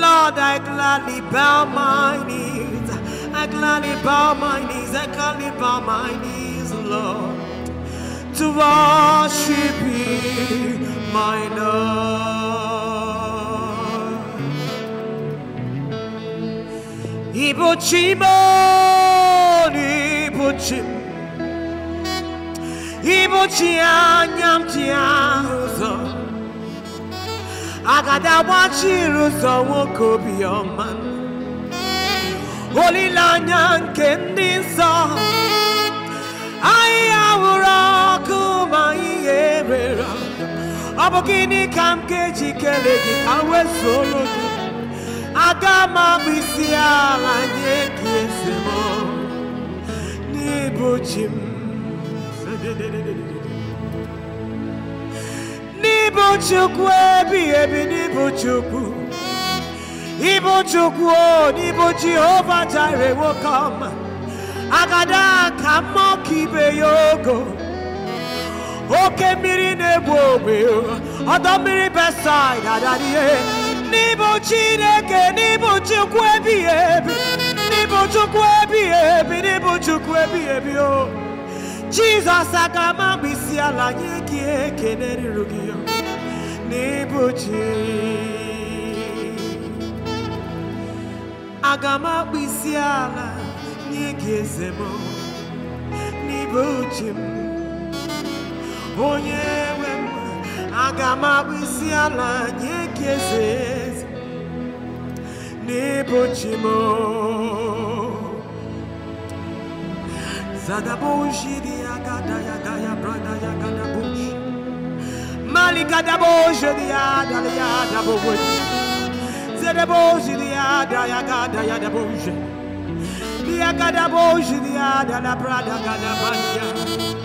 Lord, I gladly bow my knees. I gladly bow my knees. I gladly bow my knees, Lord, to worship you, my Lord. Ibuchimon, Ibuchim, Ibuchia, Nyamtia, Ruzo. Agada wachi Ruzo woko biyoman. Olilanya kendi nso. Ayawura kuma iyebera. Ọ bụ gịnị ka m ga-eji kelee gị ka m wee soro gị? Agama m abụ isi ala anyị eki ese m n'ịbụ chi m n'ịbụ chukwu ebighị ebi n'ịbụ chukwu ịbụ chukwu o n'ịbụ jehova jire nwoke agada ka mma ọka oke mmiri na-egbu ogbe ọdọ mmiri besaid adadie N'ibo Chineke, n'ibo Chukwu ebighị ebi, n'ibo Chukwu ebighị ebi, n'ibo Chukwu ebighị ebi o. Jizọs aga m ala nye gị ekele ruru N'ibo Chi. Aga ala nye gị N'ibo Chi Onye nwe aga m abụ isi ala nye ya eze eze n'ịbụchi m zadaboshiri agada ya gaya brada ya gadabosh mali gadaboshiri ya adala ya adabogwe zadaboshiri ya ada ya gada ya daboshe ya gadaboshiri ya prada brada gadabanya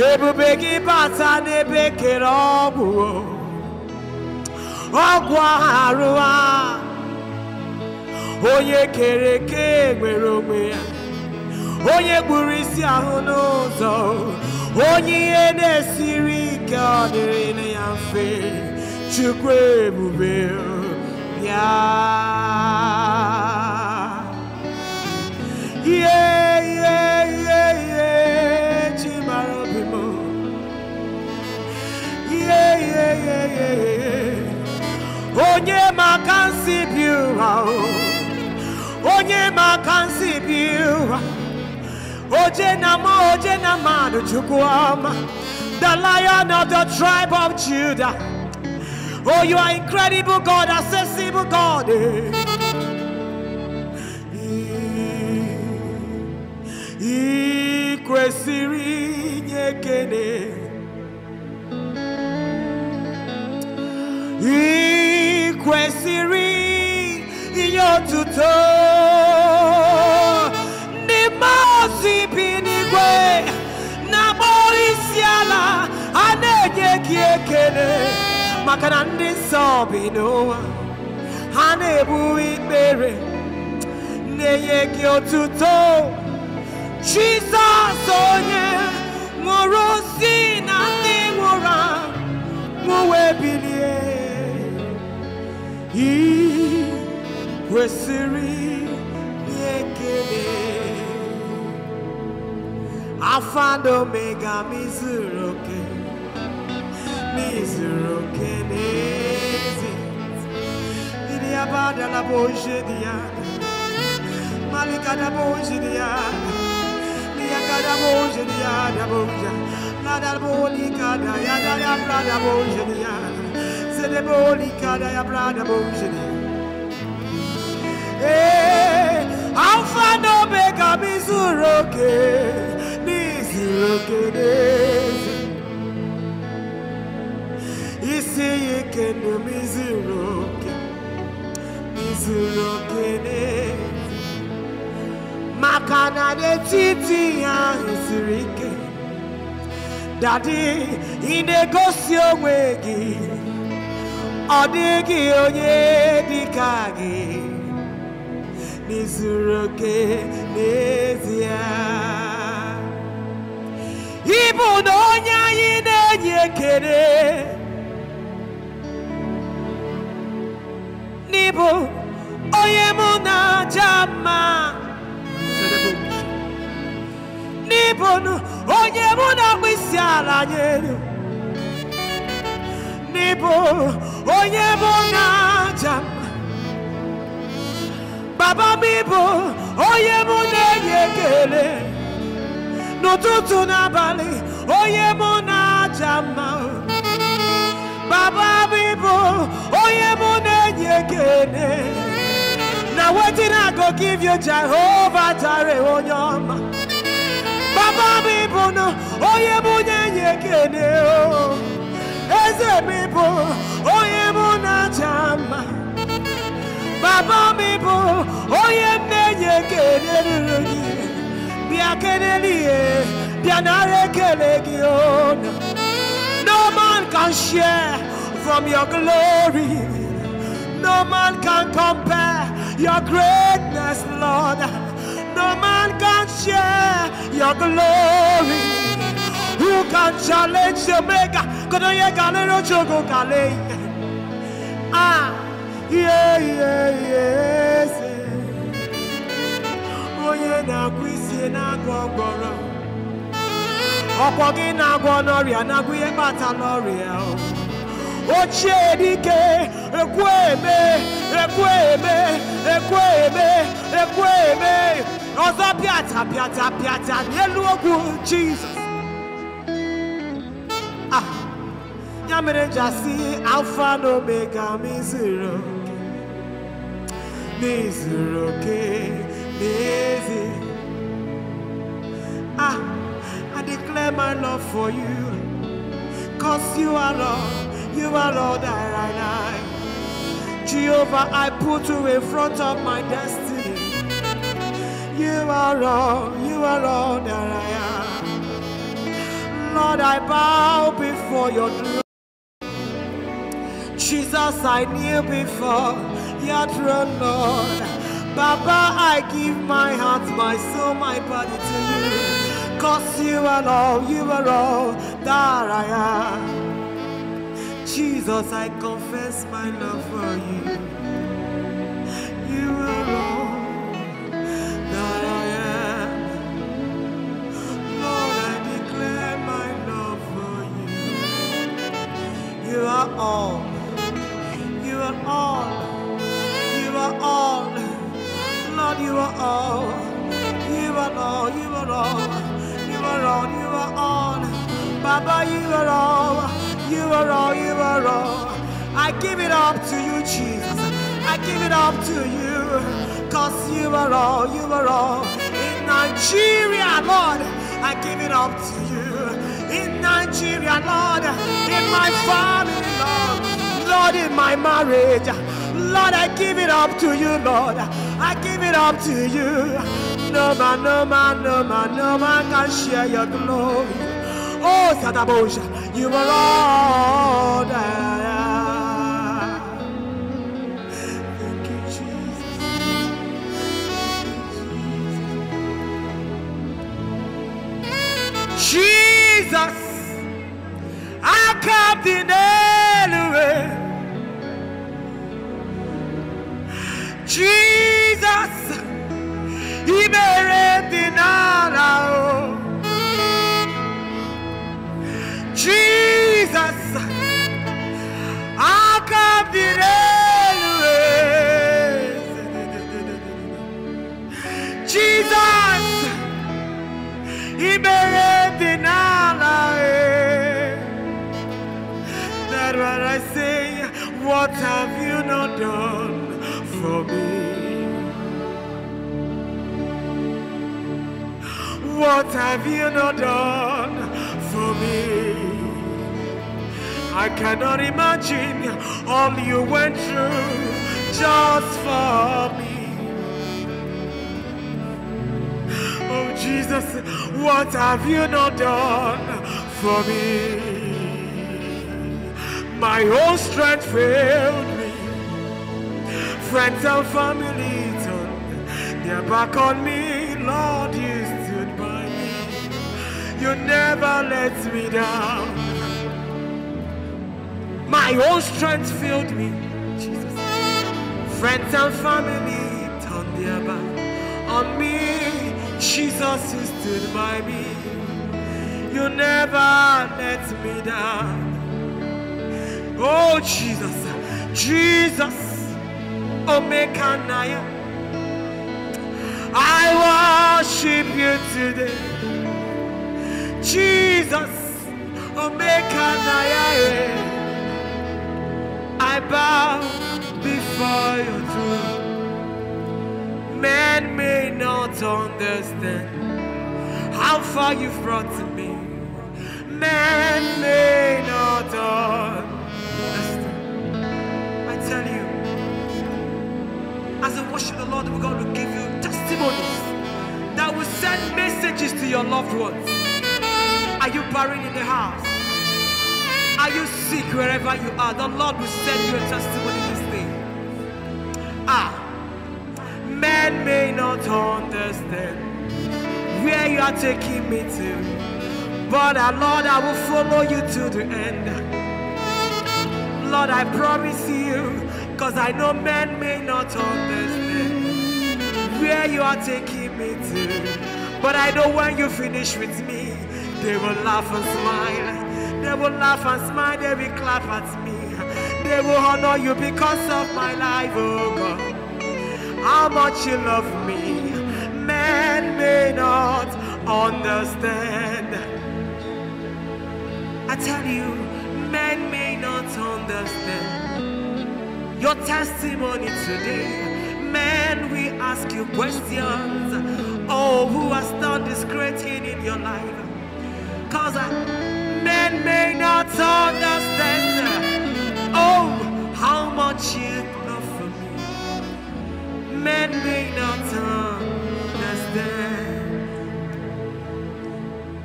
ebube gị bata n'ebe kere ọgwụ ọgwụ arụ a onye kere eke nwere onwe ya onye gburu isi ahụ n'ụzọ onye ihe na-esiri ike ọ dịrị ya mfe chukwu ebube ya onye onye oje na oje na the lion of the tribe of judah oh you are incredible god accessible god ị kwesịrị ị kwesịrị inye otuto ndị mmụọ bi n'igwe na-akpọ isi ala a na-enye gị ekele maka na ndị nsọ bi n'ụwa ha na-ebu ikpere na-enye gị otuto Jizọs onye nwụrụ si na ndị nwụrụ anwụ nwụwe bilie i kwesịrị ekele afado mega mizuru oke mizuru oke n'ezi ndị abada na boje dị malika na boje dị ya kada boje dị ya da boje da ya da ya pra da boje dị Alpha and Omega Mizuroke, Mizuroke, Isiyike no Mizuroke, Mizuroke, Makana de Titi and Isirike, Daddy, in with ọ dịghị onye dị ka gị n'izuru oke n'ezie ịbụ na onye anyị na-enye ekele n'ịbụ onye mụ na aja mma n'ịbụ onye mụ na-akpụ isi ala nyelu n'ebo onye oh, bụ n'aja baba m oye onye mu No tutu na bali, oye onye mu baba m oye onye mụ na-enye ekele I go give you Jehovah Jireh onye oh, baba m ịbụ na onye oh, mụ na-enye ekele eze mi bụ onye mụ na-aja mma baba mi bụ onye m na-enye ekele ruru gị bịa kelele ihe bịa nara ekele no man can share from your glory no man can compare your greatness lord no man can share your glory you can challenge the maker. Kodoye no chogo kale. Ah, yeah, yeah, yes. yeah, na-agwụ na-agwọ ọgbọrọ. gị agwo n'ọrịa na-agwụ ihe kpata n'ọrịa. dike, ekwu eme, ekwu eme, ekwu pịata pịata pịata n'elu okwu Jizọs. ya mere ji asị alfa na omega m izuru oke n'izuru oke n'ezi ah I declare my love for you cause you are Lord you are Lord that I like Jehovah I put you in front of my destiny you are Lord you are Lord that I am Lord, I bow before your throne. Jesus, I knew before your throne, Lord. Baba, I give my heart, my soul, my body to you. Cause you are all, you are all that I am. Jesus, I confess my love for you. You are all that I am. Lord, I declare my love for you. You are all are all. You are all. Lord, you are all. You are all. You are all. You are all. You are all. Baba, you are all. You are all. You are all. I give it up to you, Jesus. I give it up to you. Cause you are all. You are all. In Nigeria, Lord, I give it up to you. In Nigeria, Lord, in my family, Lord. Lord, in my marriage. Lord, I give it up to you, Lord. I give it up to you. No man, no man, no man, no man can share your glory. Oh, Sadabosha, you are Lord. Thank you, Jesus. Thank you, Jesus. Jesus. I can't deny Jesus, He may deny. Jesus, I come the Jesus, He may deny heard what I say. What have you not done for me? What have you not done for me? I cannot imagine all you went through just for me. Oh Jesus, what have you not done for me? My own strength failed me. Friends and family turned their back on me. Lord, you stood by me. You never let me down. My own strength failed me. Jesus. Friends and family turned their back on me. Jesus, you stood by me. You never let me down. Oh, Jesus. Jesus. Omekanaya. Oh, I worship you today. Jesus. Omekanaya. Oh, I bow before your throne. Man may not understand how far you've brought to me. Man may not understand As we worship the Lord, we're going to give you testimonies that will send messages to your loved ones. Are you buried in the house? Are you sick wherever you are? The Lord will send you a testimony this day. Ah, men may not understand where you are taking me to, but uh, Lord, I will follow you to the end. Lord, I promise you. Cause I know men may not understand where you are taking me to. But I know when you finish with me, they will laugh and smile. They will laugh and smile, they will clap at me. They will honor you because of my life, oh God. How much you love me, men may not understand. I tell you, men may not understand your testimony today. Man, we ask you questions. Oh, who has done this great thing in your life? Because uh, men may not understand. Oh, how much you love for me. Men may not understand.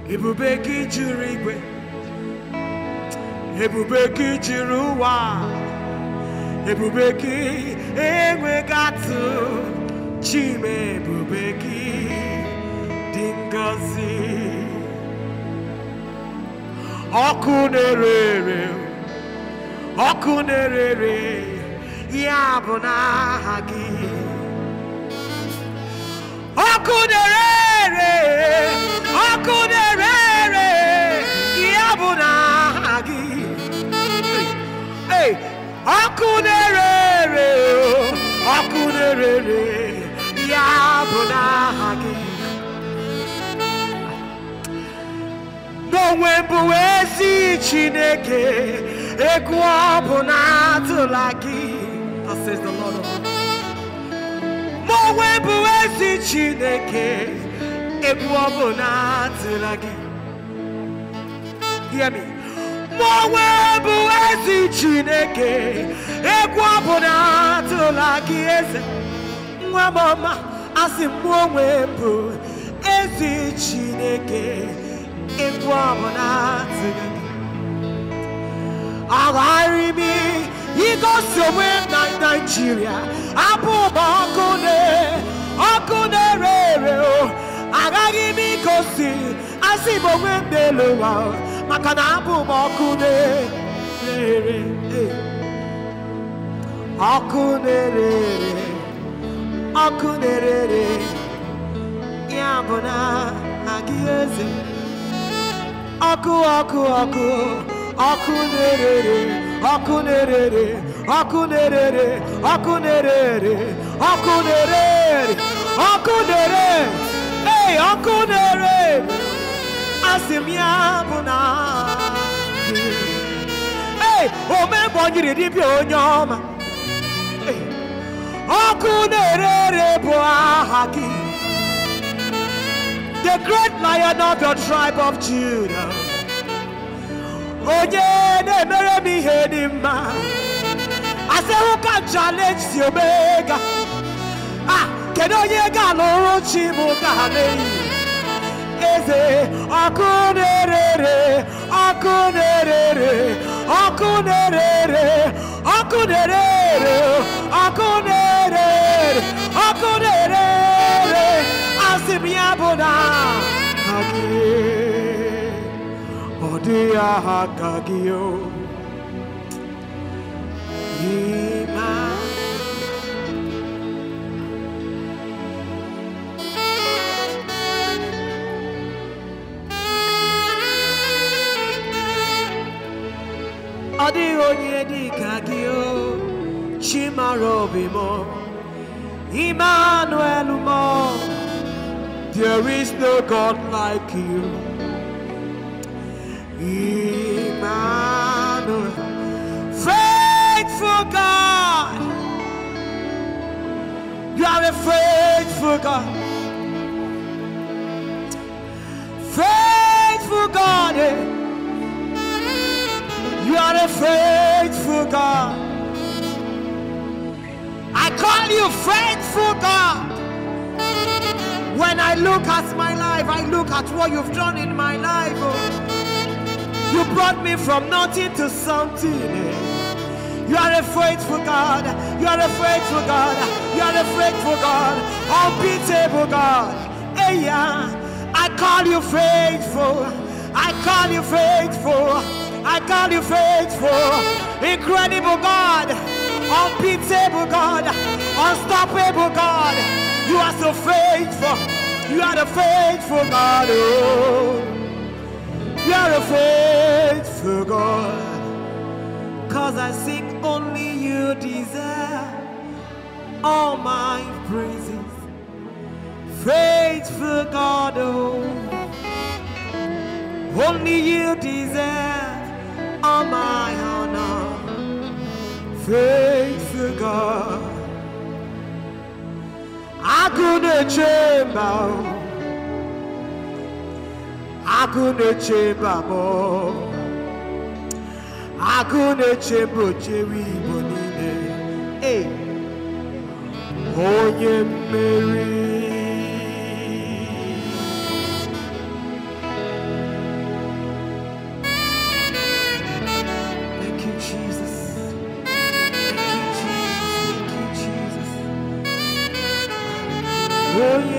ebube gị juru igwe ebube gị juru ụwa ebube gị enweghị chime ebube gị dị ngọzi ọkụ na-ere ere ọkụ na-ere ere ọkụ na-ere oku na ọkụ na-ere ere ọkụ na-ere ere ya bụ n'aha gị n'onwe bụ ezi Chineke egwu ọ bụ na atụla gị n'onwe bụ ezi Chineke egwu ọ bụ na atụla gị hear me mụonwe bụ chineke egwu ọbụla atụla gị eze asị mụ onwe chineke egwu ọbụla atụla mi agharị m igosi onwe na naijiria abụ ụba ọkụ ọkụ na-ere ere agaghị m igosi asị m onwe m n'elu ụwa maka na abụ m ọkụ na-ere e. ọkụ na-ere e. ọkụ na-ere e. ya bụ na agị eze ọkụ ọkụ ọkụ ọkụ na-ere ọkụ na-ere ọkụ na-ere ọkụ na-ere ọkụ na-ere ọkụ na-ere ọkụ na-ere asịmya na na-ere the great lion of your tribe of Judah onye na-emere m ihe dị challenge si omega a ah, kedu onye ga-alụrụ eze ọkụ na-erere ọkụ na-erere ọkụ na-erere oku ya bụ ịma ọ dịghị onye dị ka gị o Emmanuel mo. There is no God like you. Emmanuel, faithful God. You are a faithful God. Faithful God. Eh? You are a faithful God. I call you faithful God. When I look at my life, I look at what you've done in my life. Oh. You brought me from nothing to something. Eh. You are a faithful God. You are a faithful God. You are a faithful God. Unbeatable God. Hey, yeah. I call you faithful. I call you faithful. I call you faithful, incredible God, unbeatable God, unstoppable God. You are so faithful. You are the faithful God. Oh, you are a faithful God. Cause I sing only you deserve all my praises. Faithful God, oh, only you deserve on my honor, faithful God. I couldn't change chamber, I couldn't chamber more. I couldn't change chamber, Jerry Bonine. Hey, oh yeah, Mary. will you?